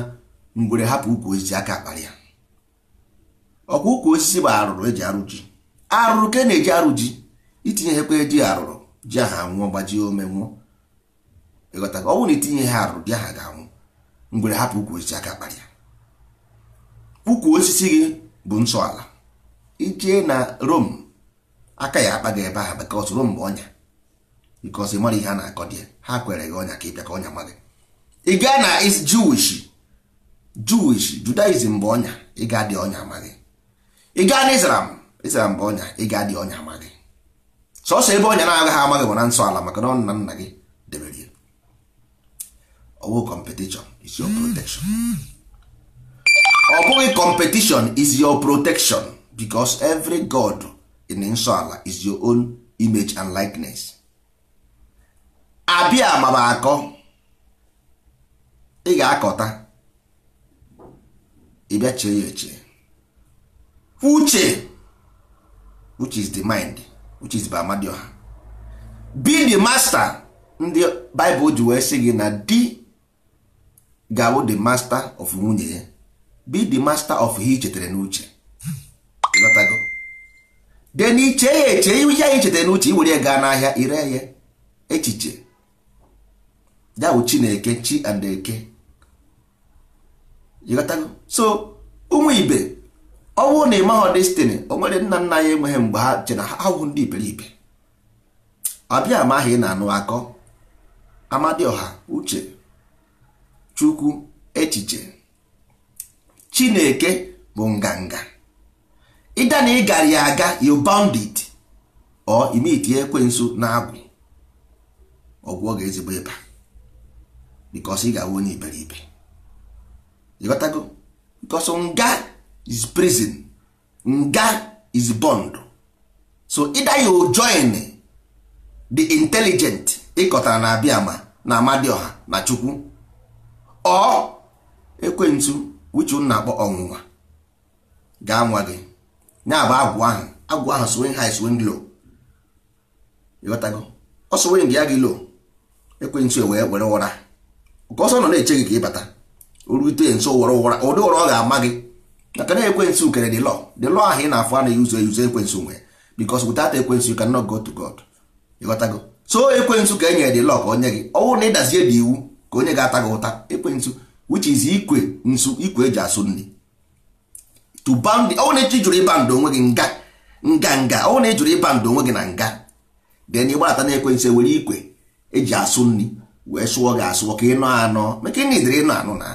mgbere hapụ ukwu osisi aka akparị ya ọkwa ukwu osisi bụ arụrụ eji arụ ji arụrụ ka e na-eji arụ ji itinye ha ekwe ji arụrụ ji aha nwụọ gbajie ome nwụọ ịghọta ọ na itinye ha arụrụ ji aha ga-anwụ mgbere hapụ ukwu osisi aka akparị ya ukwu osisi gị bụ ntọala ije na Rome aka ya akpa gị ebe ahụ maka ọsoro mgbe ọnya because ị mara ihe a na-akọ dị ha kwere gị ọnya ka ị bịa ka ọnya ma ị gaa na is Jewish Jewish Judaism bụ ọnya ị gaa dị ọnya ma gị ị gaa na Islam Islam bụ ọnya ị gaa dị ọnya ma gị sọsọ ebe ọnya na-agaghị amaghị bụ na nsọ ala maka na nna nna gị debere ya ọwụ kọmpetishọn is ọ bụghị kọmpetishọn is your protection because every god in nsọala is your own image and likeness abịa agbaba akọ ị ga-akọta ịbịa chee ya eche uche which is the mind which is ha be the master ndị Bible ji wee sị gị na di gawo the master of nwunye ya be the master of ihe i chetara n'uche ịghọtago de n'iche iche ya eche ihe anyị chetara n'uche iwere gaa n'ahịa ire ya echiche dawụ chineke chi and eke so ụmụ ibe ọ na ị destini destiny o nwere nna nna ya enweghị mgbe ha che ha ahụhụ ndị iberibe ọbịa amaghị na-anụ akọ amadioha uche chukwu echiche chineke bụ nganga ịda na ị gara ya aga you bound it or imitie ekwensu na-agwụ ọgwụ ọ ga-ezigbo ịba because ị ga-awụ onye iberibe ịghọtago because nga is prison nga is bond so ịda ya join the intelligent ịkọtara na abịa ma na ọha na chukwu ọ ekwensu wichu na-akpọ ọnwụnwa ga-anwa gị ya bụ agwụ ahụ agwụ ahụ swing high e swing low ịghọtago ọ swing ya gị low ekwentị wee were ụra ka ọsọ nọ na-eche gị ka ịbata orute nso were ụra ụdị ụra ọ ga-ama gị maka na ekwe ekwentị ukere dị lọ dị lọ ahụ ị na-afụ a na-eyuzu eyuzu ekwentị nwe because without ekwentị you cannot go to God ịghọtago so ekwentị ka enyere dị lọ ka onye gị ọnwụ na ịdazie dị iwu ka onye ga-ata gị ụta ekwentị which is ikwe nsu ikwe eji asụ nri to bound ọwụ na jụrụ ịba ndụ onwe gị nga nga nga ọwụ na ejụrụ ịba ndụ onwe gị na nga then ịgbata na-ekwensu ewere ikwe eji asụ nri wee sụọ gị asụọ ka ịnọ anọ maka ịna idere ịnọ anọ na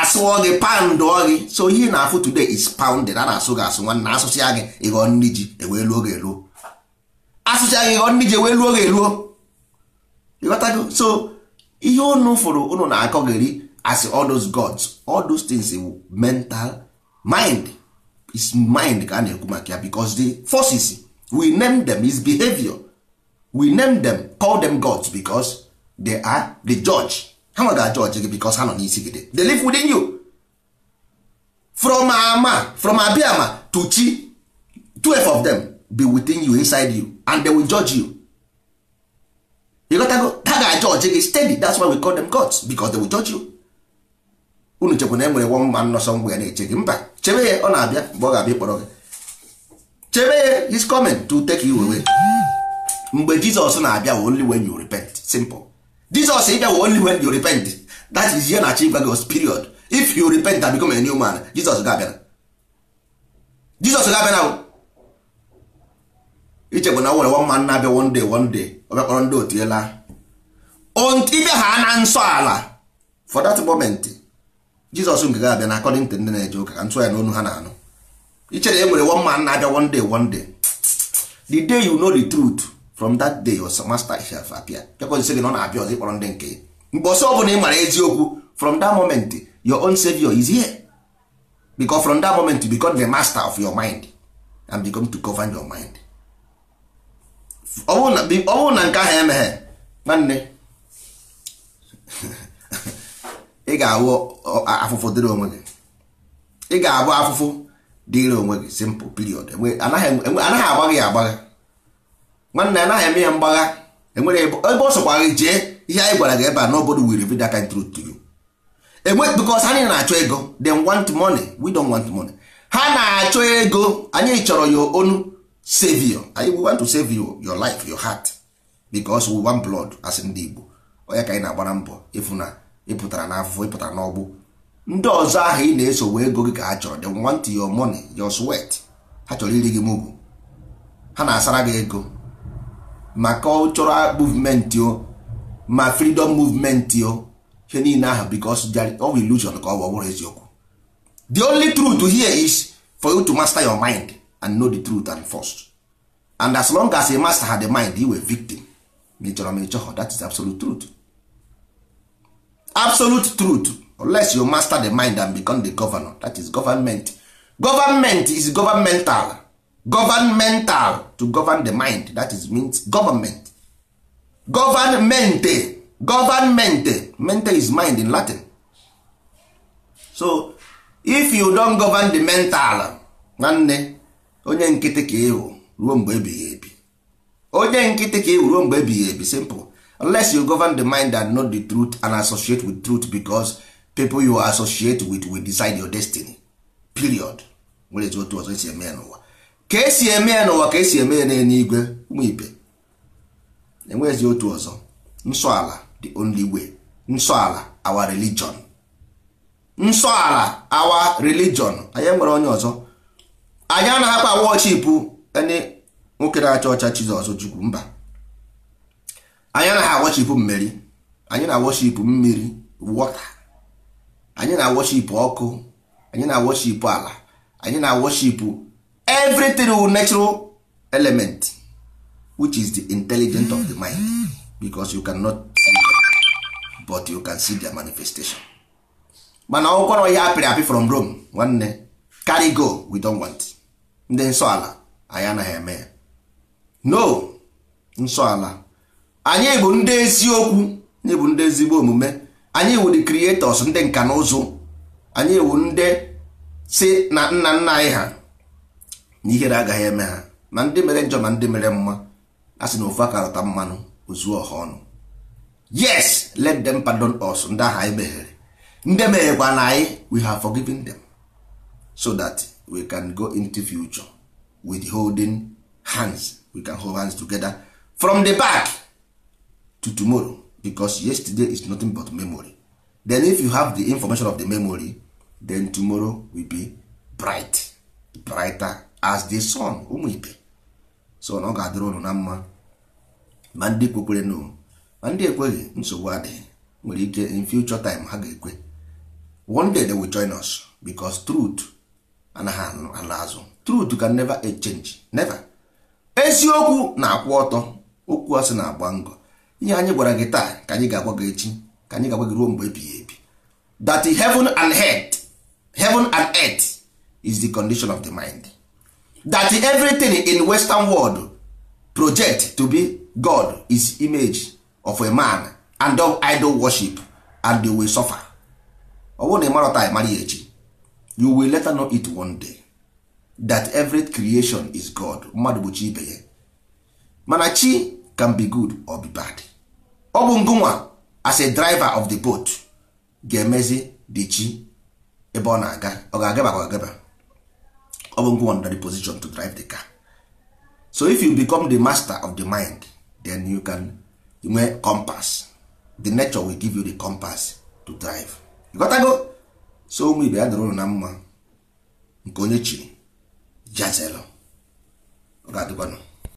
asụọ gị pandụọ gị so ihe na-afụ today is pounded a na-asụ gị asụ nwanne asụsịa gị ịghọ nri ji ewee luo gị eluo asụsịa gị ịghọ nri ji ewee luo gị eluo ịghọtago so ihe unu fụrụ ụnụ na-akọ gị ri as all those gods all those things mental mind is mind ka a na-ekwu maka ya because the forces we name them is behavior we name them call them gods because they are the judge ha judge ga-ajọji gị because ha nọ n'isi gị The live within you from ama from abiama to chi twelve of them be within you inside you and they will judge you you go ha ga-ajọji gị steady that's why we call them gods because they will judge you unu chekwa na e nwere one man nọ sọ mgbe ya na-eche gị mba chebe ya ọ na-abịa mgbe ọ ga-abịa ịkpọrọ gị chebe ya his coming to take you away mgbe jizọs na-abịa only when you repent simple jizọs ịbịa only when you repent that is ihe na-achị gwa gị period if you repent and become a new man jizọs ga-abịa jizọs ga-abịa na ichegbu na nwere one man na-abịa one day one day ọ bịa kpọrọ ndị otu ela ịbịa ha na nsọ ala for that moment jizọs nke ga-abịa na akọdịn ndị na-eje ụka ka ntụ ya n'onu ha na-anụ ichere e nwere one man na-abịa one day one day the day you know the truth from that day your master shall appear bịakwa nsị gị na ọ na-abịa ọzọ ịkpọrọ ndị nke mgbe ọsọ ọbụla ị mara eziokwu from that moment your own savior is here because from that moment you become the master of your mind and become to govern your mind ọ bụrụ na nke ahụ emeghe nwanne ị ga-awụ afụfụ dịrị onwe gị ị ga-abụ afụfụ dịrị onwe gị simple period anaghị agba gị agbagha nwanne anaghị eme ya mgbagha enwere ebe ọ sọkwa gị jee ihe anyị gwara gị ebe a n'obodo will reveal that kind truth to enwe because anyị na-achọ ego dem want money we don't want money ha na-achọ ego anyị chọrọ ya onu save you anyị we want to save you your life your heart because we want blood as ndị Igbo onye ka anyị na-agbara mbọ ịfụ na ịpụtara n'afọ ịpụtara n'ọgbụ ndị ọzọ ahụ ị na-esowe ego gị ka ha chọrọ they want your money your sweat ha chọrọ iri gị mụgụ ha na-asara gị ego ma cultural movement o ma freedom movement o ihe niile ahụ because ọ bụ illusion ka ọ bụ ọbụrụ eziokwu the only truth here is for you to master your mind and know the truth and first and as long as you master the mind you were victim ma ị chọrọ ma ị chọhọ that is absolute truth absolute truth unless you master the mind and become the governor that is government government is governmental governmental to govern the mind that is means government governmente governmente mente is mind in latin so if you don govern the mental nwanne onye nkịtị ka ịwụ ruo mgbe ebighị ebi onye nkịtị ka ịwụ ruo mgbe ebighị ebi simple unless you govern the mind and know the truth and associate with truth because people you associate with will decide your destiny period nwere ezi otu ọzọ esi eme ya n'ụwa ka esi eme ya n'ụwa ka esi eme ya igwe ụmụ ibe enwere ezi otu ọzọ nsọ ala the only way nsọ ala our religion nsọ ala our religion anyị nwere onye ọzọ anyị anaghịkwa worship any nwoke na-acha ọcha Chizọs Chukwu mba anyị anaghị awọchipụ mmeri anyị na-awọchipụ mmiri wọta anyị na-awọchipụ ọkụ anyị na-awọchipụ ala anyị na-awọchipụ everything with natural element which is the intelligent of the mind because you cannot see them, but you can see their manifestation mana ọgwụkwara ya apịrị apị from Rome nwanne carry go we don't want ndị nsọ ala anyị anaghị eme ya no nsọ ala anyị bụ ndị eziokwu anyị bụ ndị ezigbo omume anyị wụ the creators ndị nka na ụzụ anyị wụ ndị si na nna nna anyị ha na ihere agaghị eme ha ma ndị mere njọ ma ndị mere mma a sị na ofu akarọta mmanụ ozuo ọha ọnụ yes let them pardon us ndị ahụ anyị meghere ndị meghekwa na anyị we have forgiven them so that we can go into future with holding hands we can hold hands together from the back to tomorrow because yesterday is nothing but memory then if you have the information of the memory then tomorrow will be bright brighter as the sun ụmụ ibe so na ọ ga-adịrị ụnụ na mma ma ndị kwekwere nụ ma ndị ekweghị nsogbu adịghị nwere ike in future time ha ga-ekwe one day they will join us because truth anaghị ala azụ truth can never change never eziokwu na-akwụ ọtọ okwu asị na-agba ngọ ihe anyị gwara gị taa ka anyị ga-agwa gị echi ka anyị ga-agwa gị ruo mgbe ebighị ebi that heaven and earth heaven and earth is the condition of the mind that everything in western world project to be god is image of a man and of idol worship and they will suffer ọ bụrụ na ị mara ya echi you will later know it one day that every creation is god mmadụ bụ chi ibe ya mana chi can be good or be bad ọ bụ ngụnwa as a driver of the boat ga-emezi the chi ebe ọ na-aga ọ ga-agaba ka ọ ga-agaba ọ bụ ngụnwa nọ the position to drive the car so if you become the master of the mind then you can nwe compass the nature will give you the compass to drive ịghọtago so ụmụ ibe ya dụrụ na mma nke onye chiri jazelo ọ ga-adịkwanụ